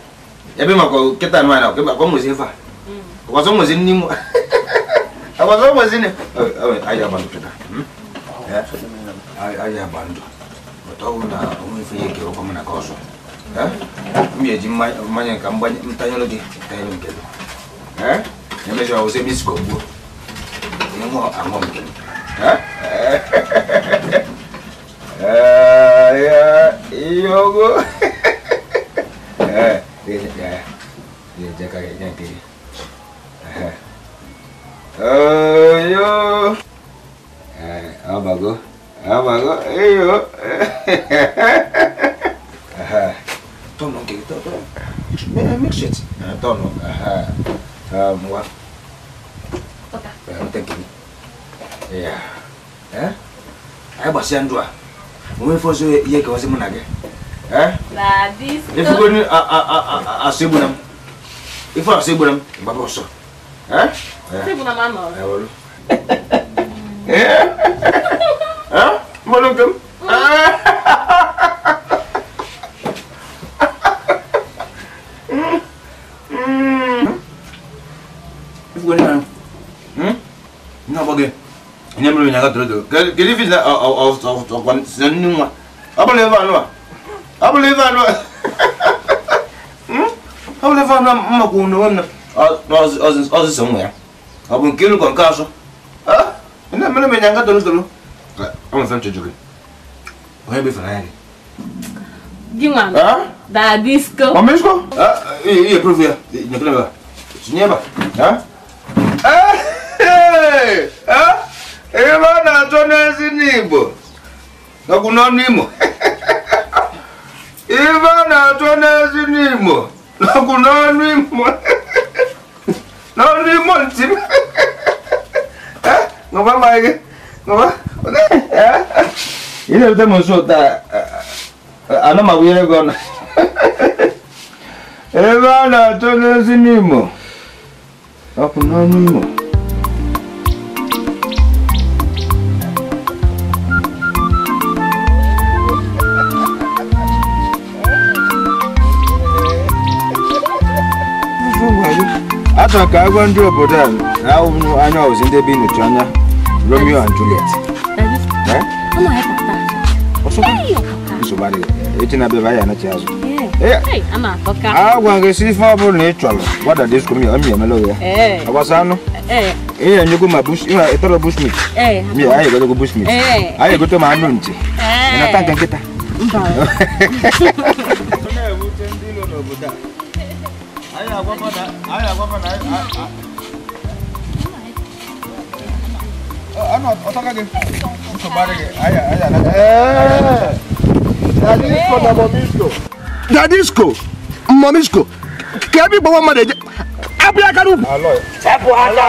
Ebe maka kịta anụ anyị na-akpọ nwezi ife a. Wazo mwezini mu. Wazo mwezini. Aje abantu da. Eh. Aje abantu. Wataona unifie kero kama na koso. Eh? Mimi jimanya kamba mtanyolo ge. Tayari mkelo. Eh? Nimeje wa usemi sikobu. Yemo amom ke. Eh? Eh ya yogo. Eh, dia dia dia jaga yang kiri. ayo amago amago ayo tolong kayak gitu tolong mix it tolong semua penting gini ya eh ayo basian dua mwe foso ye kawasi munage eh la dis ifugoni a a a a a sebunam sih sebunam baba so Eh? Você pula mais mal. É, olha. É? É? Mano, como? 이거는 응? 아, 그, 그 나 보게. 이놈을 내가 들어도. 그 그리피 나 어어어어관 선능아. 아블레바 안와. 아블레바 안와. 응? 아블레바 안와 엄마 고는 ọzụzụ nwa ya ọ bụ nke ịlụgọ nke azụ nne mere m ịnyanga doro doro ọmụfe m chụjụrụ onye befere anya gị ihe profu ya nyekere ebe tinye ebe ebe a na-achọ n'ezi n'igbo ọgwụ n'ọnụ imo ibe a na-achọ n'ezi n'igbo n'ọnụ imo no ni molti *laughs* eh ngoba mike ngoba ile uta monso ta ana mawire gona *laughs* ebana tonezi nimo akunanimo hata ka agwa ndị obodo a anya ọzi ndị ebe nyocha anya Romeo and Juliet agwa gị si ife ọ bụrụ na ị chọrọ gbada disko mi ọmị emela ya agbasa anụ ihe nyego ma ịtọrọ bushmit mi anyị egotogo bushmit anyị egote ma anụ nchi ịnata nke nkịta Ano, otaka ge. Uso bare ge. Aya, aya. Eh. Dadisco na momisco. Dadisco. Momisco. Kebi gbo ma de. Abi akaru. Aloy. Sepo ata.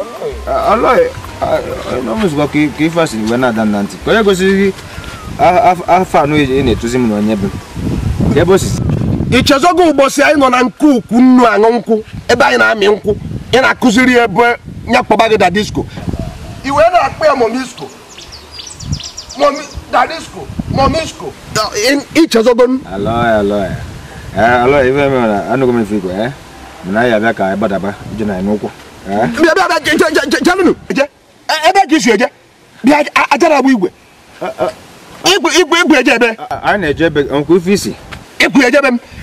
Aloy. Uh, Aloy. Uh, no misco ki ki fasi we na dan nanti. Ko ye go si afa uh, no e ne tuzi mu no nyebe. Yebo sisi. ichezogo ụbọchị anyị nọ na nke ukwu nnu aṅụ nkwụ ebe anyị na-amị nkwụ ị na-akụziri ebe ya kpọba gị dadisko i wee na-akpọ ya momisko dadisko momisko ichezogo e, eh, m ebe ka isi eje bịa ajara bụ eh, eh, igwe igwe eje ebe anyị na-eje ebe m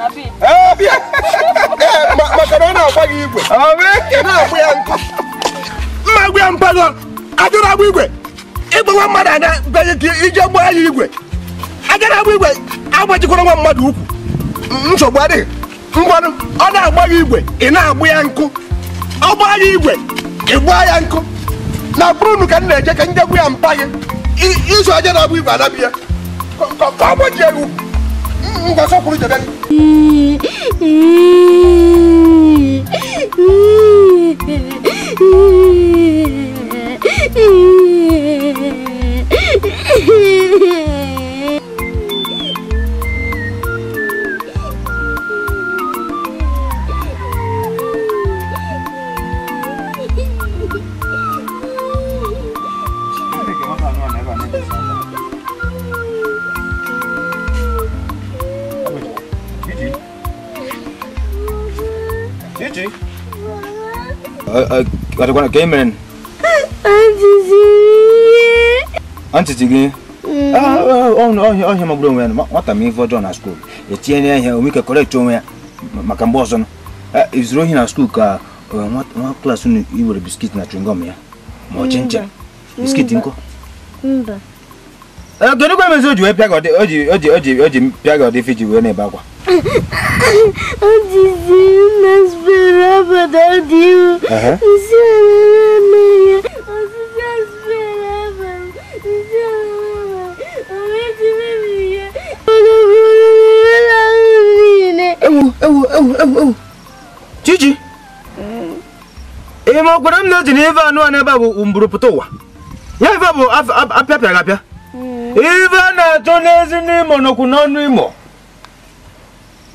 maka na eh, *laughs* eh, ọ e na gị igwe mma gwa ya mpago ajụrụ agba igwe ịgbawa mmadụ anya beghị ka ije gbaa ya igwe agara agba igwe agbajikwara nwa mmadụ ukwu nsogbu adịghị ngwanụ ọ na-agba gị igwe ị na-agbụ ya nkụ ọ gbaa ya igwe ị gbaa ya nkụ na bụrụ ka m na-eje ka njegbu ya mpa gị iso aja na-agba igwe ya ka ọ ya ukwu nggak usah kulit jadi? Watakuwa na Cayman. Auntie Tigi. ọhịa magburu onwe ya nwata ma ife ọjọọ na skuul etinye na ihe omike kọrekt onwe ya maka mgbe ọ izuru ohi na skuul ka nwa klaasị unu iwere biskit na chingom ya ma ọ chincha biskit nkụ o ji wee na-ebe akwa Antes não esperava da Deus. Uhum. O Senhor meia. Gigi! Ee, ma ọ gwara m na eji mm. na ebe anụ a n'ebe a bụ mburuputa ụwa. Ya ebe a bụ apịapịa apịa. Ebe a na-achọ n'ezi n'imo nọkwu n'ọnụ imo.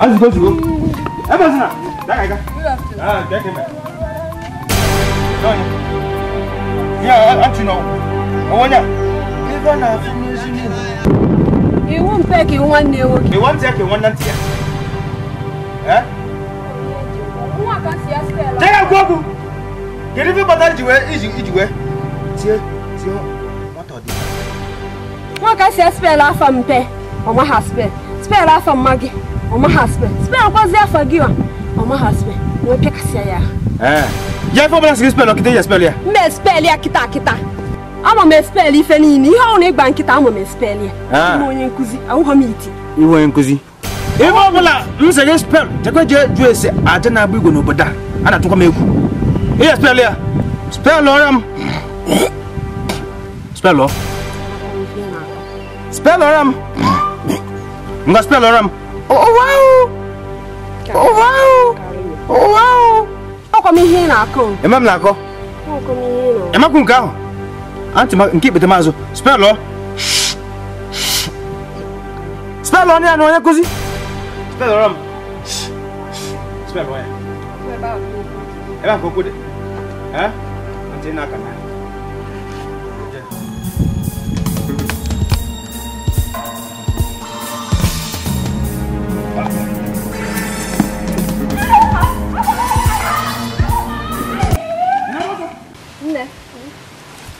azigozigo ebezina dagaga dekeme ya achino owonya ife na-afụ n'ezi n'ihu iwu mpe ka iwu mpe ka nwanne ntị ya tega gwa okwu kedu ife kpatara nwaka si spel afọ mpe ọ maha spel spel afọ mma ọmọ husband spell akwazi afagiwa ọmọ husband na ọpẹ kasi aya. yẹ eh. fọ bọlá sigi spell ọkìtẹ yẹ spell yẹ. mbẹ spell yẹ kita kita ama m spell ife ni ihe ọhụrụ ịgba nkịta ama m spell ya ah. ime onye nkụzi ahụghọ m iti iwe onye nkụzi ife ọbụla m sị gị spell chekwa jee jụọ ese aja na-agba igwe n'obodo a a na-atụkwa m egwu ihe spell ya spell ọrịa m spell ọ spell ọrịa m nga spell ọrịa m Oh, oh wow oh, oh, m ihe ị na-akọ m na-akọ emakwu nke ahụ nke ikpete maazụ spelụ spelụ ọnụ ya na onye nkụzi m ọrụ ebe a ka okwu dị ntị na aka na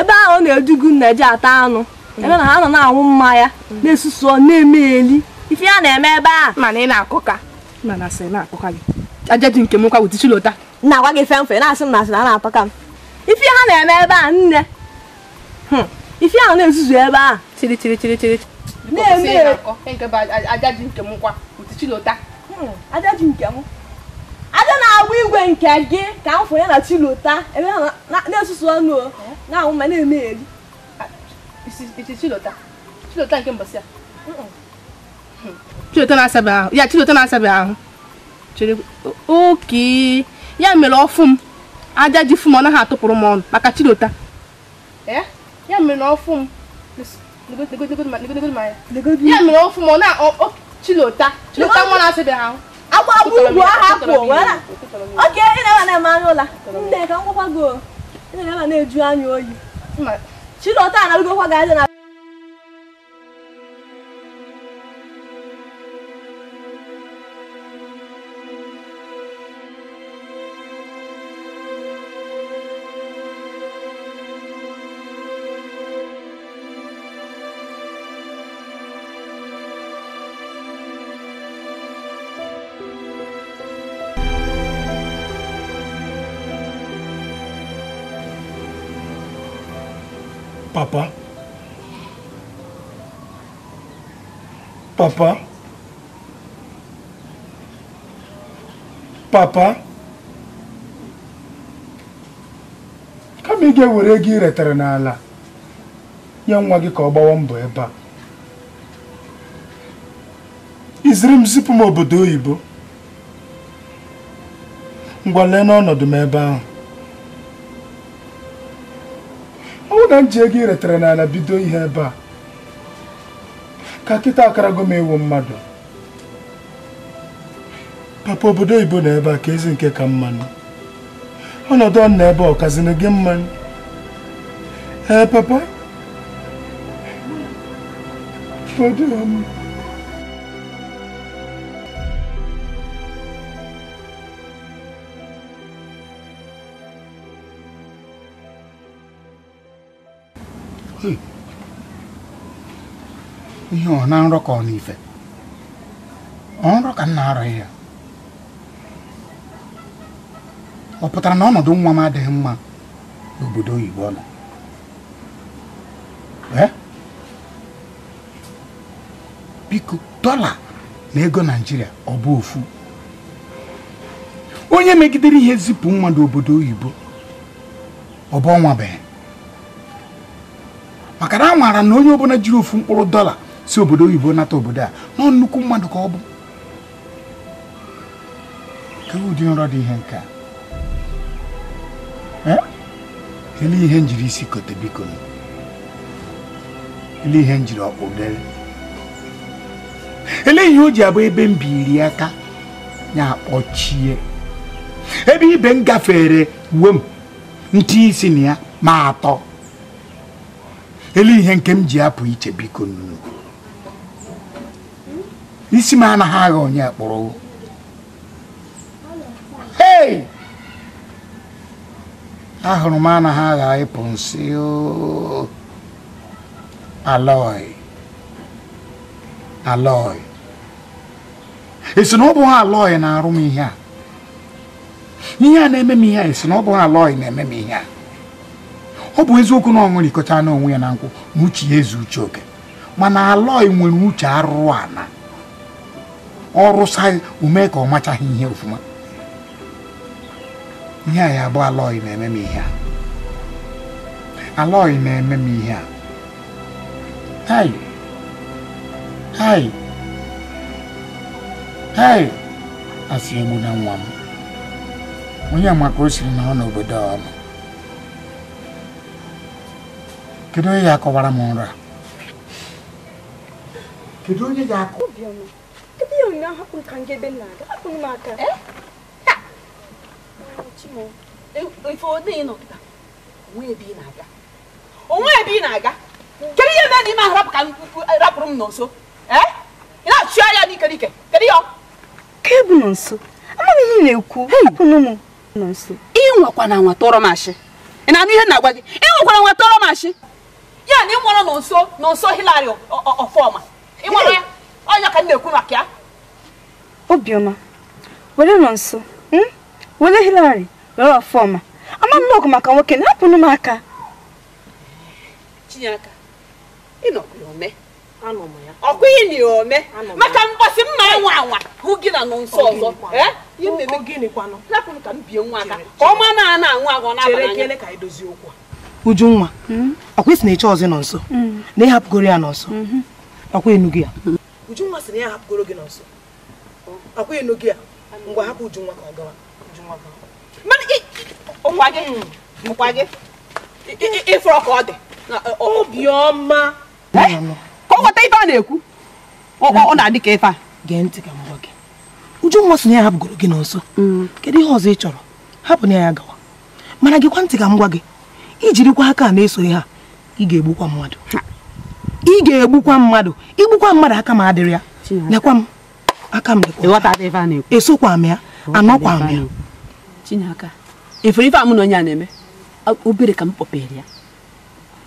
ebe ahụ na-edugu nna ji ata anụ hmm. ebe na ha nọ na-anwụ mmanya hmm. na-esusu na-eme eli ife ya na-eme ebe a mana ị na-akụka ka. sị na-akụka gị aja ji nke m nkwa wụtichi lota na-agwa gị fe na-asị m na asị na a na ka m ife ha na-eme ebe a nne hmm. ife ahụ na-ezuzu ebe a chiri chiri chiri chiri na-eme aja ji nke m nkwa wụtichi lota aja ji nke m aja na-agba igwe nke gị ka m fụnye na chilota ebe ha na-esusu ọnụ na-ahụ ma na eme elu. ya na ahụ ya mere ọfụ m aja ji fụ m eh? ya mere ọfụ chilota chilota agbagbu ugwu ahụ apụ oke ị na-eba na-eme anya ụla nne ka m gwakwa gị ị na-eba na-eju anya oyi chilọta na-arụgokwa gị aja na papa papa kama ị ga-ewere ego ị n'ala nye nwa gị ka ọ gbawa mbọ ebe a iziri m zipụ m obodo oyibo ngwa lee n'ọnọdụ m ebe ahụ ọ bụ na m ji ego ị retara n'ala bido ihe ebe a ka kịta akarago m ewu mmadụ papa obodo oyibo na ebe a ka ezi nke ka mmanụ ọnọdụ ọ na ebe ọkazini gị mmanụ ee papa Hey. ihe ọ na nrọ ka ọ na ife ka nna arọghị ya ọ pụtara na ọnọdụ nwa m adịghị mma n'obodo oyibo nọ biko dọla na ego naijiria ọ bụ ofu onye megidere ihe zipụ mmadụ obodo oyibo ọ bụ bụ maka na a nwara na onye ọbụla jiri ofu mkpụrụ dọla si obodo oyibo nata obodo a na nnukwu mmadụ ka ọ bụ ka e ụdị nrọ dị ihe nke a ele ihe njiri isi kote biko ele ihe njiri ọkpụ dere ele ihe o ji abụ ebe m biri aka ya akpọchie ebe ibe m gafere uwe m ntị isi na ya ma atọ ele ihe nke m ji apụ iche biko nnukwu isi m anaghị agha onye kpụrụ hei ahụrụ m anaghị agha ịpụ nsị aloi aloi esi na ọ bụghị aloi na-arụ m ihe a ihe a na-eme m ihe a esi na ọ bụghị aloi na-eme m ihe a ọ bụ eziokwu na ọ ṅụrịkọta n'onwe ya na nkwụ na uche ya eze uche oke mana aloi nwere uche arụrụ ana ọrụsa ume ka ọ machaghị ihe ofuma ihe a ya bụ alọghị na-eme m ihe a alọghị na-eme m ihe a hai hai hai asị egbu na nwa m onye amaka o siri na ọ n'obodo ọnụ kedu onye ya akọwara m nra kedu onye ya akọ Eh? Eh, eh, ebe ya ụnyaahụ hapụrụ ka ngebe na-aga hapụrụ m aka onwe ebe ị na-aga kedu ihe mee na n'ime ahụ rapụrụ m n'nso ị na-achụ n'ike n'ikerike kedu ya ke bụ nọ nso amaghị ihe ị na-ekwu hapụnụ m nọ ị nwekwana nwa tọrọ m ashị ị na-anụ ihe na-agwa gị ị nwekwara nwa tọrọ m ashị ya na ị nwụrụ n'nso n'nso Hilary ọfọma ị nwụrụ ya ọnya ka m na-ekwu maka ya obiọma were nọ nso hmm? were hilari were ọfọma ama m n'ọgụ maka nwoke na hapụnụ m aka Chinyaka ome ọkwa ihe na ome maka mgbasị mma nwa anwa hụ gị na nọ nso ọzọ ka m bie nwa aka ka ọ ma na ana anwa agụ n'abalị Ujunwa ọkwa isi na-eche ọzọ nọ nso hmm. na ịhapụgoro ya nọ nso hmm. ọkwa enugu ya Ujunwa sị na ya hapụgoro gị n'ọsọ akwa eno gị a ngwa hapụ Ujunwa ka ọ gawa ịfụrọ ka ọ dị obiọma ka ọ ghọta ife a na-ekwu ọ na-adị ka ife a gee ntị ka m gwa gị Ujunwa sị na ya hapụgoro gị n'ọsọ mm. kedu ihe ọzọ ị chọrọ hapụ na ya gawa mana gịkwa ntị ka m gwa gị ijirikwa aka a na-esoghi ha ị ga-egbukwa mmadụ ị ga-egbukwa mmadụ igbukwa mmadụ aka m adịrị ya lekwa m aka m esokwa m ya anọkwa m ya efere ife amụ na onye a na-eme obere ka m kpọpere ya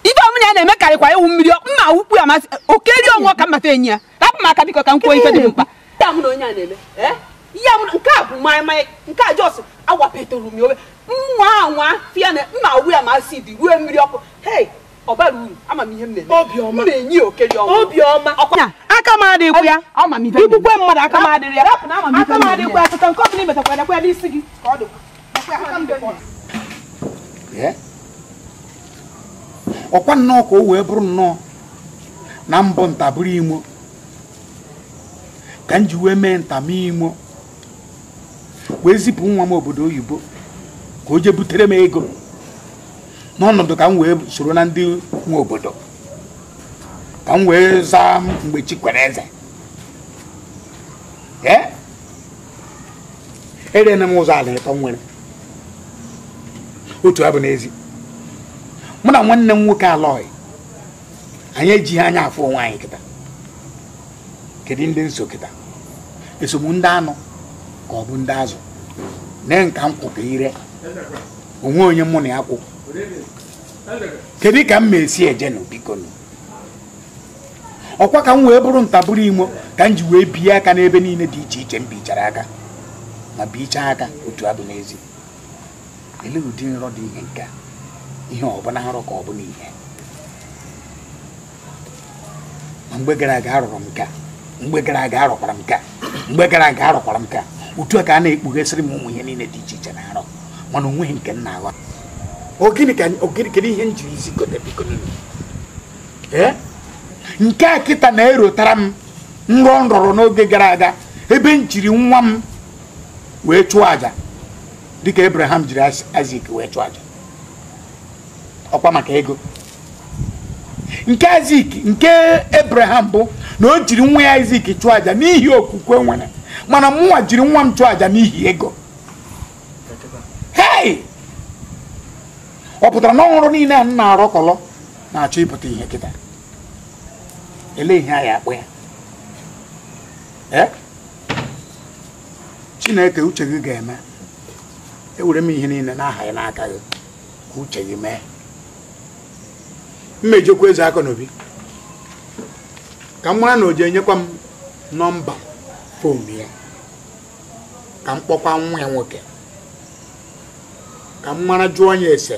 ife na ya na-eme karịkwa ewu mmiri mma ukwu amasị ka mmata enyi ya rapụ m aka biko ka m kwuo eh? a bụ a ya masị mmiri ọkụ ọbara uru na aka m ya mmadụ aka m adịrị ya aka m ya nke ọbụla ka ọkwa nnọọ ka o wee bụrụ nnọọ na mbụ ntabụrụ imo ka m ji wee mee ntama imo wee zipụ nwa m obodo oyibo ka o jee butere m ego n'ọnọdụ ka m wee soro na ndị nwe obodo ka m wee zaa mgbe chi kwere eze erena m ụzọ ala ịtọ nwere otu abụ n'ezi mụ na nwanne m nwoke alọghị anyị ejighị anya afọ onwe anyị kịta kedu ndị nso kịta esogbu ndị anụ ka ọ bụ ndị azụ nee nka m kwụ ka ire onwe onye mụ na ya kwụ kedu ka m na-esi eje nụ ọkwa ka m wee bụrụ ntabụrụ imo ka m ji wee bie aka n'ebe niile dị iche iche m bichara aka ma bichaa aka otu abụ n'ezi ele ụdị nrọ dị ihe nke ihe ọ bụla nrọ ka ọ bụla ihe ma mgbe gara aga arụrụ m ka mgbe gara aga arụkwara m ka mgbe gara aga arụkwara m ka otu a ka a na-ekpughesịrị m ụmụ ihe niile dị iche iche na arọ mana onweghị nke m na-aghọta kedu ihe njiri njirizi nke a kịta na-erotara m nrọ nrọrọ n'oge gara aga ebe m jiri nwa m wee chụọ aja dịka Abraham jiri Isaac wee chụọ aja ọkwa maka ego nke Isaac nke Abraham bụ na o jiri nwa ya Isaac chụọ aja n'ihi okwukwe nwere mana mụnwa jiri nwa m chụọ aja n'ihi ego ọ pụtara na ọhụrụ niile a m na-arọkọlọ na-achọ ịpụta ihe kịta ele ihe a ya akpọ ya eh? chineke uche gị ga-eme ewere m ihe niile n'aha ya n'aka gị ka uche gị mee mmejikwa eze aka n'obi ka m mara na o enyekwa m nọmba fon ya ka m kpọkwa nwa ya nwoke ka m mara jụọ ya ese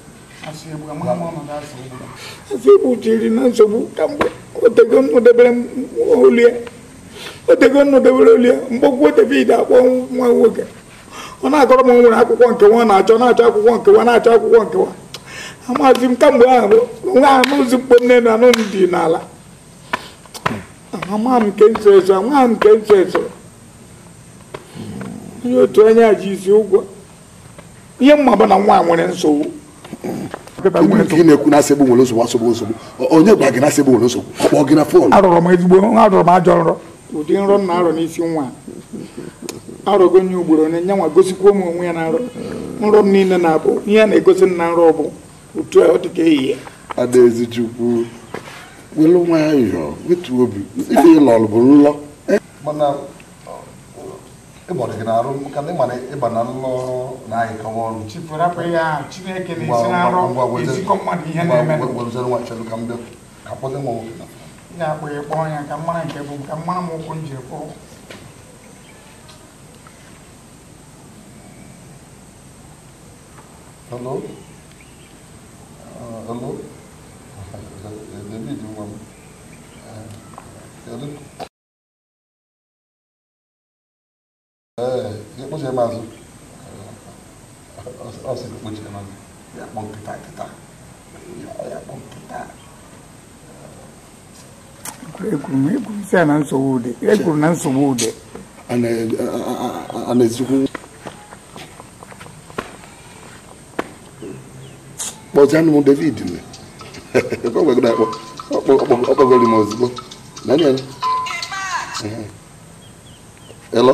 Asiegbu chiri na nsogbu kamgbe otego nnọdebere olu ya otego olu akpọ nwa nwoke ọ na-akọrọ m nwere akwụkwọ nkewa na-achọ na-achọ akwụkwọ nke nkewa na-achọ akwụkwọ nkewa amazi m kamgbe ahụ nwa anụ nne na anụ dị n'ala nke otu onye ihe mma bụ na nwa nwere nsogbu nke na-ekwu na asịgbụ nwere nsogbu asogbu nsogbu onye gwara gị na asịgbụ nwere nsogbu ọ kpọọ gị na fon arọrọ m ezigbo arọrọ m ajọ nrọ ụdị nrọ m na-arọ n'isi nwa arọgo nye ugboro onye nyanwa gosikwa m onwe ya na nrọ nrọ m niile na-abụ ihe a na-egosi m na nrọ bụ otu a ọ dị ka ehihie adaezi chukwu welu nwayọọ wetu obi ife ịlọrụ bụ nlọ ịgbara gị na-arụ maka na ịmara ịba na nlọ na anyị ka ọrụ gwezere nwa chọrọ ka m bịa ka kpọta nwa nwoke na ị ga-akpọ ya kpọọ ya ka mara nke bụ ka mara m ụkwụ m ji kwụrụ Hello? Uh, hello? David, you want... Uh, hello? ẹ kó ṣe máa sùn ọsẹ kó ṣe máa sùn yàpọ̀ kìtà kìtà yàpọ̀ kìtà. ekuru ekuru sẹ anan sọwọ dẹ ekuru nan sọwọ dẹ. ana ana ezikwu. kpọzi anụ m david na ekweghị akpọ ọkpọgoro m ozugbo. Hello?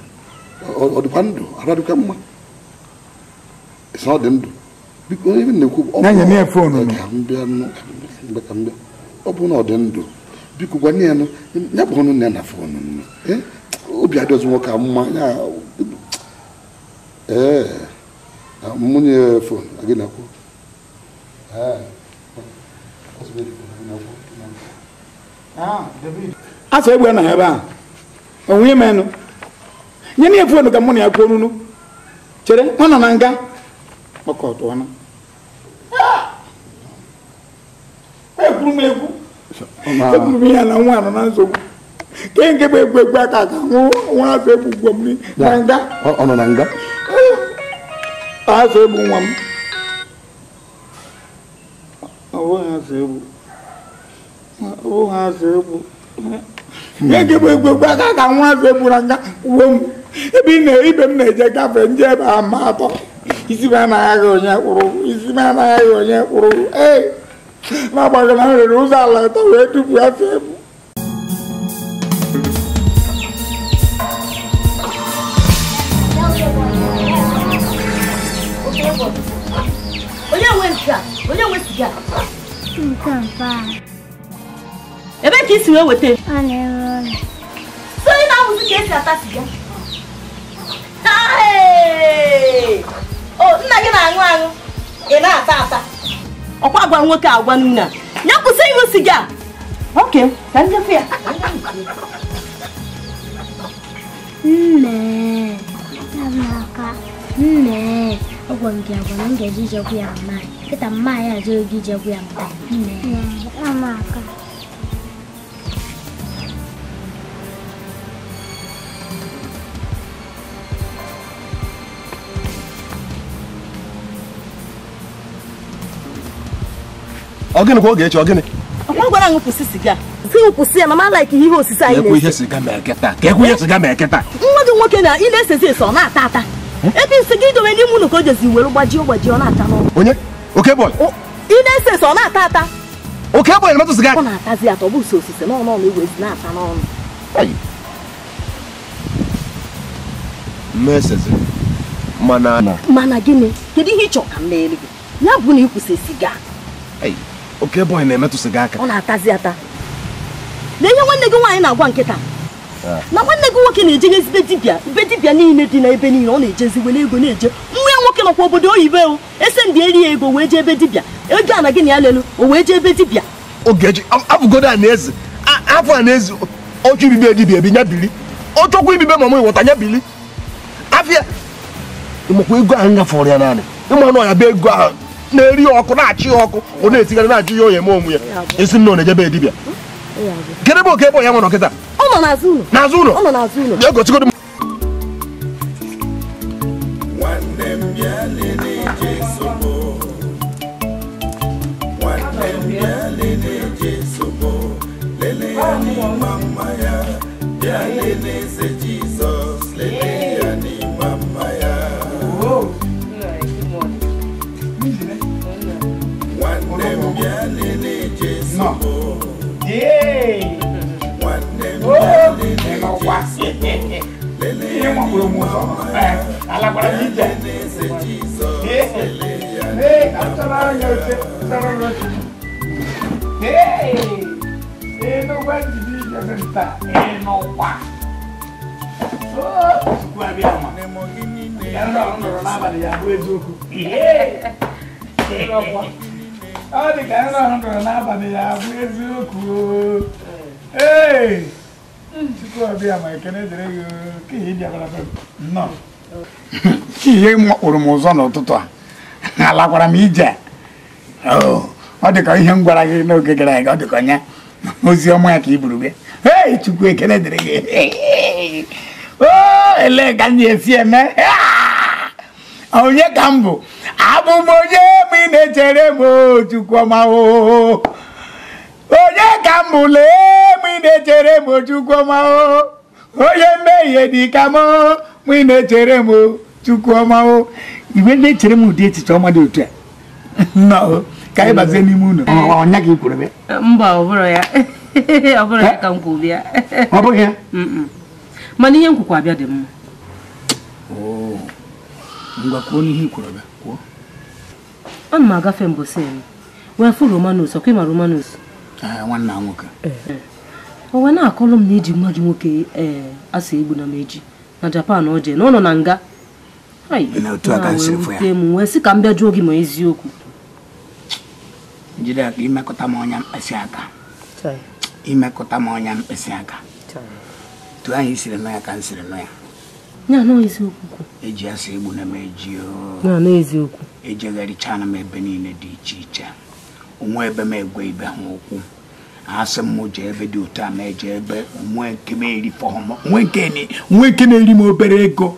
ọ dịkwa ndụ ara dịkwa mma ọ dị ndụ biko onye na-ekwu ọ bụ na ọ dị ndụ biko gwa ya nụ ya bụ ọnụ na fon obi adịghị nwoke mma ya ee mụnye fon gị na-akwụ a egbe na nye na efu onu ka mụ na ya kwuo nunu chere ọ nọ na nga kpakọtụ ọnụ ekwuru m egwu ekwuru m ya na nwa anọ na nsogbu ke nke bụ egwu egwu aka aka nwa afọ egbu ugwo m na nga ọ ah! nọ na nga afọ egbu nwa m ihe nke bụ egwu egwu aka aka nwa afọ egbu na nga uwe m ebe na ibe m na-eje gafee nje ebe a atọ isi m anaghị onye isi m anaghị onye kwuru ee n'agbanyeghị na m ụzọ ala atọ wee tupu afọ ebu o oh, nna gị na-aṅụ aṅụ ị na-ata ata ọkwa agwa nwoke agwa nna ya kwụsị ịṅụ siga oke ka ndekwa ya nne amaka nne agwa m gị agwa na m ga-eji ijegwu ya mma kịta mma ya ajụghị gị ijegwu ya mma nne amaka ọ gịnị oge echi ọgịnị? anyị kwụsị ihe osise ihe ma eke taa. Ka e ihe ma eke taa. nwoke na ị na na-ata ata. Hm? Ebe nsị gị idobe gbajie gbajie ọ na-ata Onye? Oke Ị na-ese ese ọ na-ata ata. Oke na metụ sịga. Ọ na-atazi atọ bụ osise n'ọnụ ọnụ igwe na-ata n'ọnụ. mana. gịnị? ihe ị m bụ na ị siga. oke bọyị na-emetụsị gị aka ọ na-atazi ata na ihe nwanne gị nwaanyị na-agwa nkịta ah. na nwanne gị nwoke na-ejenyezide dibịa ibe dibịa niile dị n'ebe niile ọ na-ejezi were ego na-eje nwa ya nwoke nọkwa obodo oyibo o ese ndị eri ya ego wee jee ebe dibịa ego a na gị na ya lelu o wee jee ebe dibịa ogeji abụgodo a na-eze afọ a na-eze oche ibibe dibịa ebi nya bili ọchọkwa ibibe mama ịwọta nya bili afịa ịmakwa ego ahụ nyafọrọ ya naanị ịma na ọ ya bụ ego ahụ na-eri ọkụ na-achị ya ọkụ ọ na-etigara na-ajụ ya onye eme onwe ya esi nna ọ dibịa kedụ ebe oke ebe ya nwe nọkịta n'azụ ụlọ bịa m Bịa wá sí ní wọn kúrò mú sọ alágbára yìí jẹ ee ee àtúntàlá yẹn ṣe sọ̀rọ̀ lọ sí ee ee ló wá jìbí ìjọba níta ee lọ wá ó sùkú àbí àwọn yẹn lọ rọ nọrọ n'abalị ya bụ eziokwu ee ọ dị ka yẹn lọ rọ nọrọ n'abalị ya bụ eziokwu ee. tupu ọ bịa ma ekene gị ka ihe dị abara nnọọ ihe makpụrụ m ụzọ n'ụtụtụ a alakwara m ije oh, ọ dị ka ihe m gwara gị n'oge gara aga ọ dị ka onye ozi ọma ya ka i buru bịa ee chukwu ekele dịrị gị oh, elee ka m na-esi eme ah, onye ka m bụ abụ m onye ma ị na-echere m oh, chukwu ọma. onye ka m bụ lee m na-echere m Chukwuma o onye mmehie dị ka m mụ ị na-echere m Chukwuma o iwe na-echere m ụdị echiche ọma dị otu a ka anyị bazie n'ime ụlọ ọnya gị kwuru mba ọ bụrụ ya *laughs* ọ bụrụ ya ka m kwuru ya ọ bụghị ya mana ihe m kwukwa abịa dị mma ngwa kwuo n'ihe ikwuru abịa kwuo ana m agafe mbosi m wee fụ romanus ọkwa ịma romanus nwanna nwoke eh, eh. o wee na akọrọ m na iji nwa gị nwoke ee eh, asa egbu na meji na japan ọ jee na ọ nọ na nga m wee sị ka m bịa jụọ gị ma eziokwu jide aka imekọta m ọnya mkpịsị aka imekọta m ọnya mkpịsị aka tu anyị siri nọ ya ka m siri nọ ya eji e asa egbu na m eji ejigharicha e na m ebe niile dị iche iche onwe ebe m egwe ibe ha okwu asị mụ m jee ebe dị otu a ma eje ebe nwe nke m eri hmm. nke na-eri m obere ego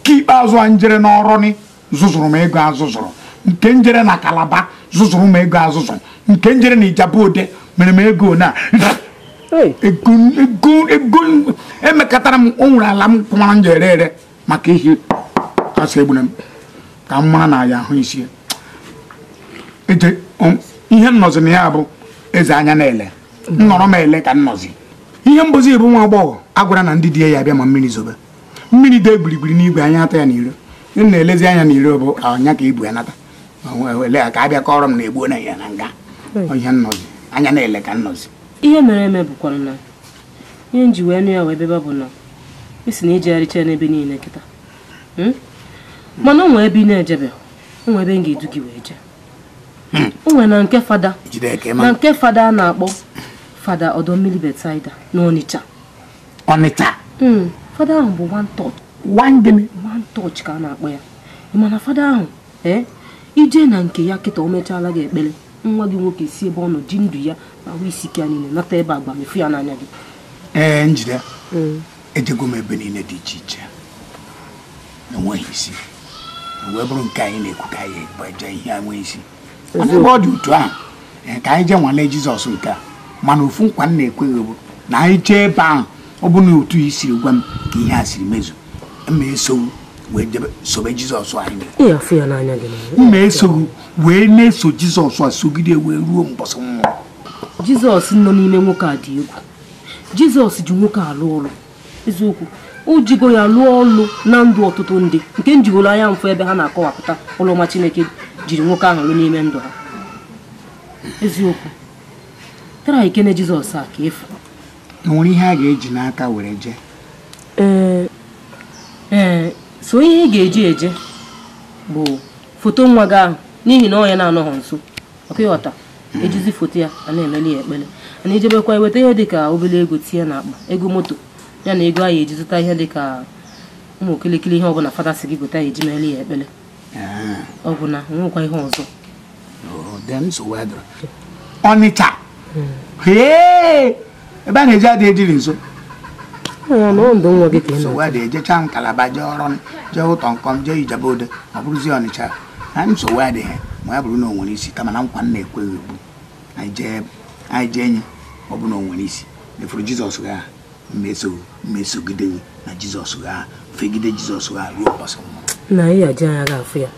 nke ikpeazụ a njere n'ọrụ zụzụrụ m ego azụzụrụ nke njere na kalaba zụzụrụ m ego azụzụrụ nke njere na Ijebuode mere m ego na emekọtara m o nwere ala m kwụmara njere ere maka ihe kasị egbuna m ka m mara na ya ahụ isi ihe nnọzi na ya bụ eze anya na-ele nnọrọ m ele ka nnọzi ihe mbozi bụ nwa agbọghọ agwara na ndị di ya bịa ma mmiri zobe mmiri dee gbirigbiri n'igwe anya atọ ya n'iro na-elezi anya n'iro bụ anya ka ibu ya nata ka a bịa kọrọ m na egbuo na ya na nga ihe nnọzi anya na-ele ka nnọzi ihe mere eme bụkwara na ihe nji wee nụ ya wee bebe bụ na isi na ijegharịcha e ya n'ebe niile kịta hmm? mana o nwee ebe ị na-ejebe o nwee ebe m ga-edu gị wee jee nwere na nke fada na nke fada a na-akpọ fada ọdọ mmiri betaida na Ọnịcha Ọnịcha hmm, fada ahụ bụ one touch ka a na-akpọ ya mana fada ahụ ee eh, ije na nke ya kịta o mechaala gị ekpere nwa gị nwoke si ebe ọ nọ ji ndụ ya na ahụ isi ike ya niile nata ebe mefu ya n'anya gị ee eh, njide hmm. ejego m ebe niile dị iche iche enweghị isi wee bụrụ nke anyị na ka eje ihe isi ebe ọ dị otu ahụ e, ka anyị jee nwalee jizọs nke a mana ofu nkwa nna na-ekweghị bụ na anyị jee ebe ahụ ọ bụ na otu i siri gwa m ka ihe a siri mezu ma esogbu wee sobe jizọs anyị mma esogbu wee na-eso jizọs a sogide wee ruo mbọsị nwa jizọs nọ n'ime nwoke a dị egwu jizọs ji nwoke a ụlọ eziokwu o jigo ya lụọ ọlụ na ndụ ọtụtụ ndị nke njigoro anya mfụ ebe ha na-akọwapụta ụlọma chineke jiri nwoke ahụ lụ n'ime ndụ ha eziokwu tara ikene jizọs a ka efu nwere ihe a ga-eji n'aka were jee ee so ihe ị ga-eji eje bụ foto nwa gị ahụ n'ihi na ọ ya na-anọghọ nso ọka ịghọta ejizi foto ya a na-emeli ya ekpere na ijebekwa eweta ihe dịka obere ego tinye na akpa ego moto ya na ego a ya eji zụta ihe dịka ụmụ okirikiri ihe ọbụla fada si gị gote ya eji meli ya ekpere ọ bụ na nwekwa ihe ọzọ ọnịcha oh, ebe a na-eji adị ejiri nso nsogbu ejecha m kalaba jee ọrụ jee ụtọ nkọm jee ijebe ode ọ bụrụzi ọnịcha na nsogbu adịghị ma ya bụrụ na o nwere isi kama na nkwa m na-ekweghị egbu anyị jee enyi ọ bụ na o nwere isi mefuru jizọs gaa mmeso mmesogide na jizọs gaa fegide jizọs gaa ruo ụbọchị na anyị aji anya ga-afụ ya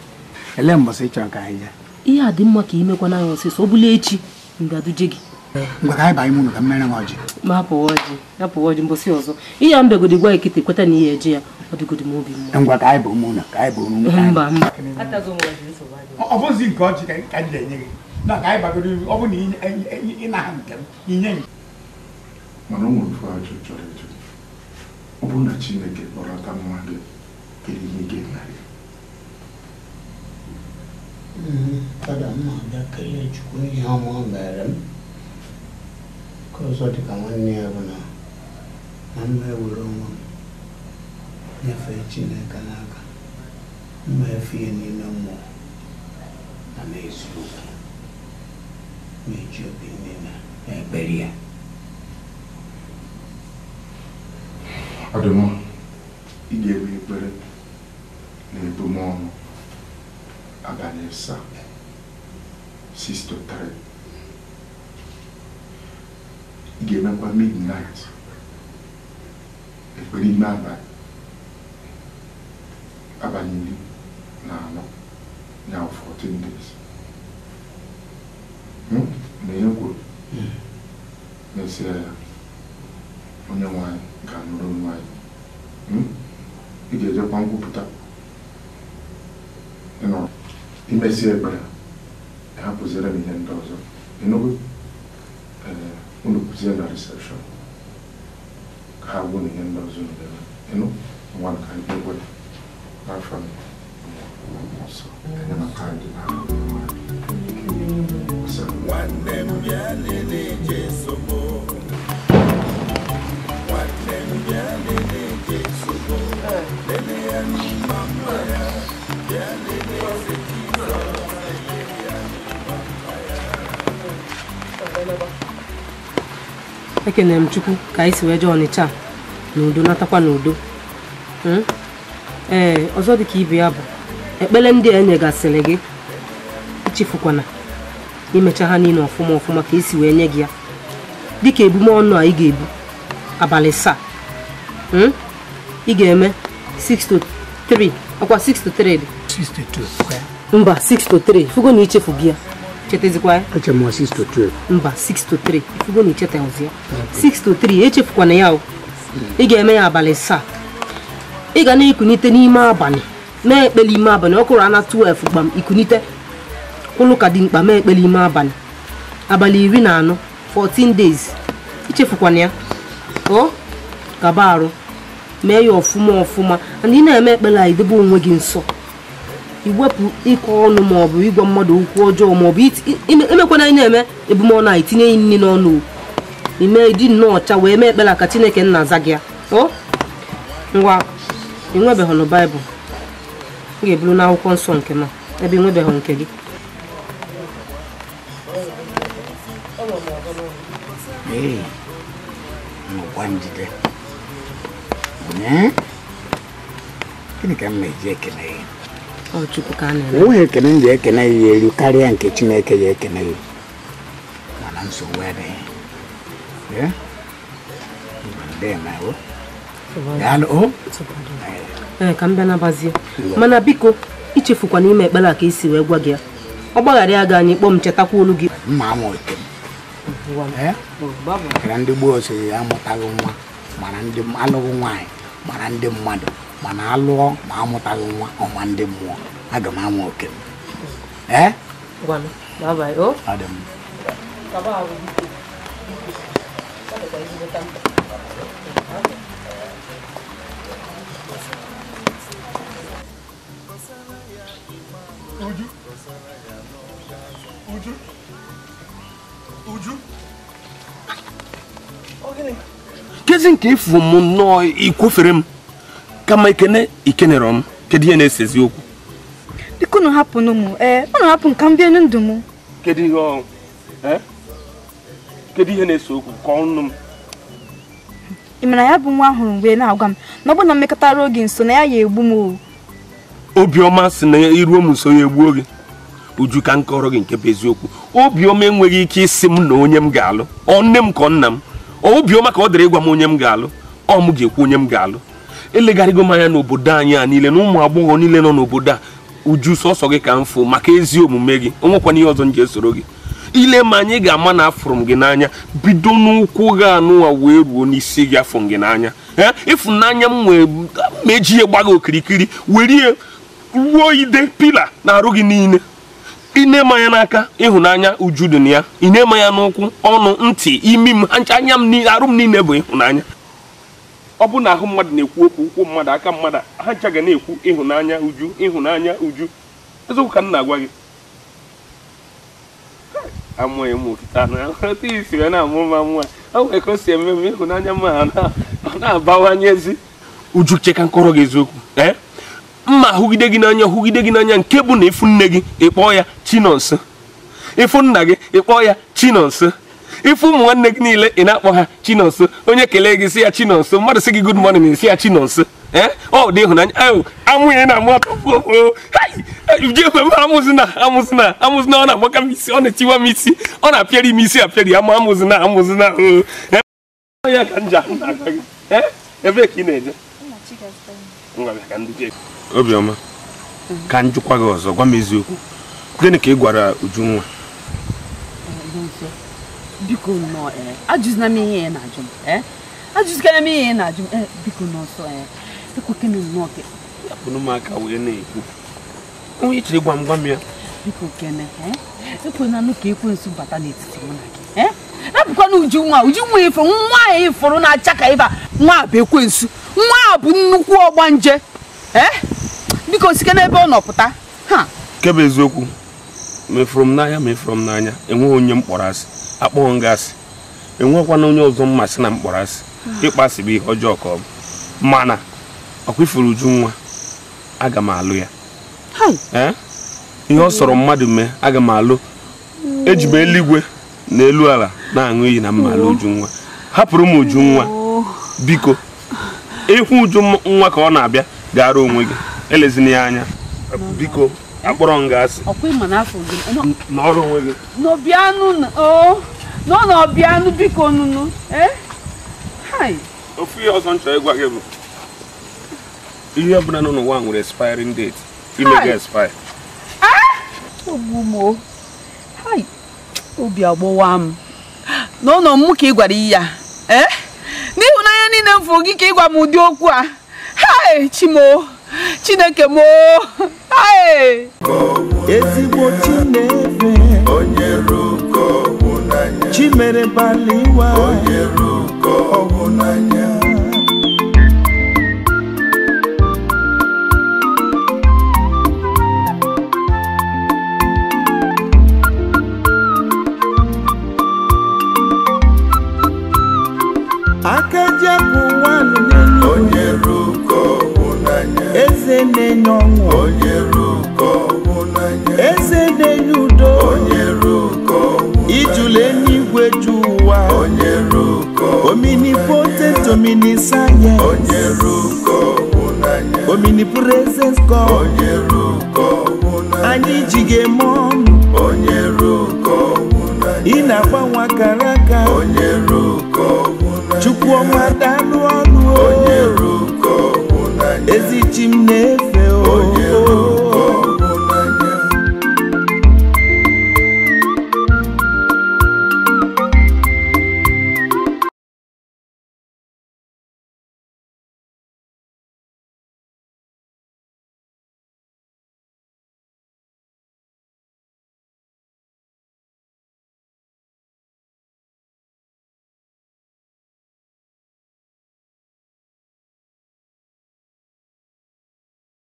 elee mbọsị ị chọrọ ka anyị ya? ihe a dị mma ka imekwana ya ọsịsọ ọ bụla echi ngaduje gị Ngwa ka anyị banye m ụlọ ka mmere m ọjị ma apụwa ọjị apụwa ọjị mbọsị ọzọ ihe a mbegodi gwa ekete kweta na ihe ji ya ọ dịgodi m obi mma ngwa ka anyị bụ ụmụ ụlọ ka anyị bụ ụmụ ụlọ mba mba ọ bụzi nke ọjị ka anyị ga-enye gị na ka anyị bagoro ọ bụ na ịnaha nke m inye m mana ọ nwere chọrọ ịjụ ọ bụrụ na Chineke kpọrọta nwa gị Kadama dakile chukuni yama berim. Kozoti kaman niyabuna. Amme uloma. Nefe chine kanaka. Ne fiyeni Mefiye nina mo. Ame isuka. Mechopi nina. Eberiya. Ademo. Idewe ibere. na-ebumọnụ abalị asaa 6 to 3 ị ga-emekwa midnight ekpere ime abalị abalị iri na anọ ya 14 days na ihe kwuru ya onye nwanyị ga-anụrụ nwanyị ị ga-ejekwa nkwupụta no imesi ekpere ha kụziere m ihe ndị ọzọ não unu kụzie na recepshọn na recepção, ndị ọzọ na-eme enu nwa ka ndị egwe n'afọ nsọ enyemaka ndị na-ahụ mmadụ nwanne m bịa chineke na m chukwu ka anyị si wee na udo natakwa n'udo hmm? ee ọzọ dị ka ibe ya bụ ekpele ndị a enyegasịrị gị ichefukwana imecha ha niile ọfụma ọfụma ka esi wee nye gị ya dịka ebume ọnụ a ị ga-ebu abalị saa hmm? ị ga-eme 6 3 ọkwa 6 3 dị mba 6 3 fugo na ichefu gị ya chetazikwa echema 6 to 3 mba 6 to 3 ifugo na ichetazia 6 to 3 echefukwana ya ị ga-eme ya abalị saa ị ga na-ekunite n'ime abalị mee ekpele ime abalị ọkụrụ ana 12 gbam ikunite kwụlụ ka dị mkpa mee ekpele ime abalị abalị iri na anọ 14 days ichefukwana ya o gaba arụ mee ya ọfụma ọfụma and ị na-eme ekpere a idebe onwe gị nsọ iwepụ ịkọ ọnụ maọbụ ịgwa mmadụ okwu ọjọọ maọbụ emekwana anyị na-eme ebumọnụ anyị itinye ya nri n'ọnụ ime dị nnọọ ọcha wee mee ekpela ka chineke nna aza gị o ngwa ịnwebeghị na baịbụl m ga-eburu n'akwụkwọ nsọ nke m ebe ịnwebeghị nke gị gịnị ka m na-eji ekele ya onweghị ekene m ji ekene ya elu karịa nke chineke ya ekene ya mana nsogbu adịghị ka m bịa nabazie mana biko ichefukwa n'ime ekpere a ka isi wee gwa gị ya ọ gbaghara ya gị anyị kpọọ m chetakwa olu gị ndị gboo so amụtaghị nwa mara alụghị nwaanyị mara ndị mmadụ mana alụọ ma amụtaghị nwa ọnwa ndị mmụọ aga m ama oke m e? Kezi nke ifu m nnọọ ikwofere m kama ikene ikenere m kedu ihe na-esezi okwu biko eh, unu hapụnụ m ee unu hapụ ka m bie ndụ m kedu ihe eh, ọ kedu ihe na-ese okwu ka ọnụ m ị mara ya bụ nwa ahụrụ mgbe na-agwa m na ọ bụ na mmekọtara oge nso na ya ya egbu m obiọma si na iruo m nso ya egbuo gị uju ka m gị nke bụ eziokwu obiọma enweghị ike isi m na onye m ga-alụ ọ nne m ka ọ nna m obiọma ka ọ dịrị ịgwa m onye m ga-alụ ọ mụ ga-ekwu onye m ga-alụ elegharịgo m anya n'obodo anyị a niile na ụmụ agbọghọ niile nọ n'obodo a uju sọsọ gị ka m fụ maka ezi omume gị onwekwana ihe ọzọ m ji esoro gị ile ma anyị ga-ama na afụrụ m gị n'anya bido n'ụkwụ gị anụwa wee ruo n'isi gị afụ gị n'anya ee ịfụnanya m wee meji ya gba gị okirikiri were ruo ide pila na-arụ gị niile ine ma ya n'aka ịhụnanya uju dị na ya ine ma ya n'ụkwụ ọnụ ntị imi m anya m arụ m niile bụ ịhụnanya ọ bụ na ahụ mmadụ na-ekwu okwu ụkwụ mmadụ aka mmadụ ha ncha ga na-ekwu ịhụnanya uju ịhụnanya uju eziokwu ka m na-agwa gị amụghị m okita isi wee na-amụ mma nwa o nwere ka o si eme eme ịhụnanya mma ọ na-abawanyezi uju cheka nkọrọ gị eziokwu eh? mma hụgide gị n'anya hụgide gị n'anya nke bụ na ịfụ nne gị ịkpọ ya chinonso ịfụ nna gị ịkpọ ya chinonso ife ụmụ nwanne gị niile ị na-akpọ ha chinonso onye kelee gị si ya chinonso mmadụ si gị good morning esi ya chinonso eh? ọ dị ịhụnanya amụnye na amụ atọjekwe m amụzina amụzina amụzina ọ na-agbaka m isi ọ na-etiwa m isi ọ na-apịarị m isi apịarị ama amụzina amụzina eh? ya ka nja eh? ebe ka ị na-eje obiọma ka m jụkwa gị ọzọ gwa m eziokwu gịnị ka ị gwara Ujunwa biko nnọọ e, ajụzina m ihe ị na-ajụ m e, ajụzikana m ihe ị na-ajụ m e, biko n'ọsọ ekweke m nnọọ ke akpụrụ m aka wee na-ekwu onye chere gwa m gwa m ya biko kene ekwenanụ ka ekwensu bata n'etiti mụ na gị ebụkwana uju nwa uju nwa ifo nwa a ịfụrụ na-acha ka ịba nwa bụ ekwensu nwa a bụ nnukwu ọgbanje biko sike n'ebe ọ nọpụta ha nke bụ eziokwu mefụrụ m n'anya mefụrụ m n'anya enweghị onye m kpọrọ asị akpọghọ ngasị enwekwana onye ọzọ mmasị na mkpọrọ asị ịkpasị bụ ihe ọjọọ ka ọ bụ mana ọkwa uju nwa aga m alụ ya ihe ọ sọrọ mmadụ mee aga m alụ eji eluigwe na elu ala na-aṅụ iyi na mma alụ uju nwa hapụrụ m uju nwa biko ịhụ uju nwa ka ọ na-abịa gara onwe gị elezina ya anya biko Eh? akpọrọ m gị asị ọkwa ịma n'afọ gị n'ọrụ onwe gị n'obianụ nọ n'obianụ biko nụnụ eh? ofu ihe ọzọ nchọ ịgwa gị bụ ihe ọbụla nọ n'ụwa nwere expiring date ime gị expire eh? ogbumo obi agbọwa m n'ụlọ m ka ị gwara ya n'ịhụnanya niile m gị ka ị gwa m ụdị okwu a hai chineke m ezigbo chinefe chimere baliwa aka eze na-enye ọṅụ eze na-enye udo ijula eluigwe ju ụwa omini poteto omini sayensị omini anyị ji gị eme ọnụ ị na-agbanwe akara aka chukwu ọma dalụ ọrụ Ezicim ezicimnefeo oh, yeah.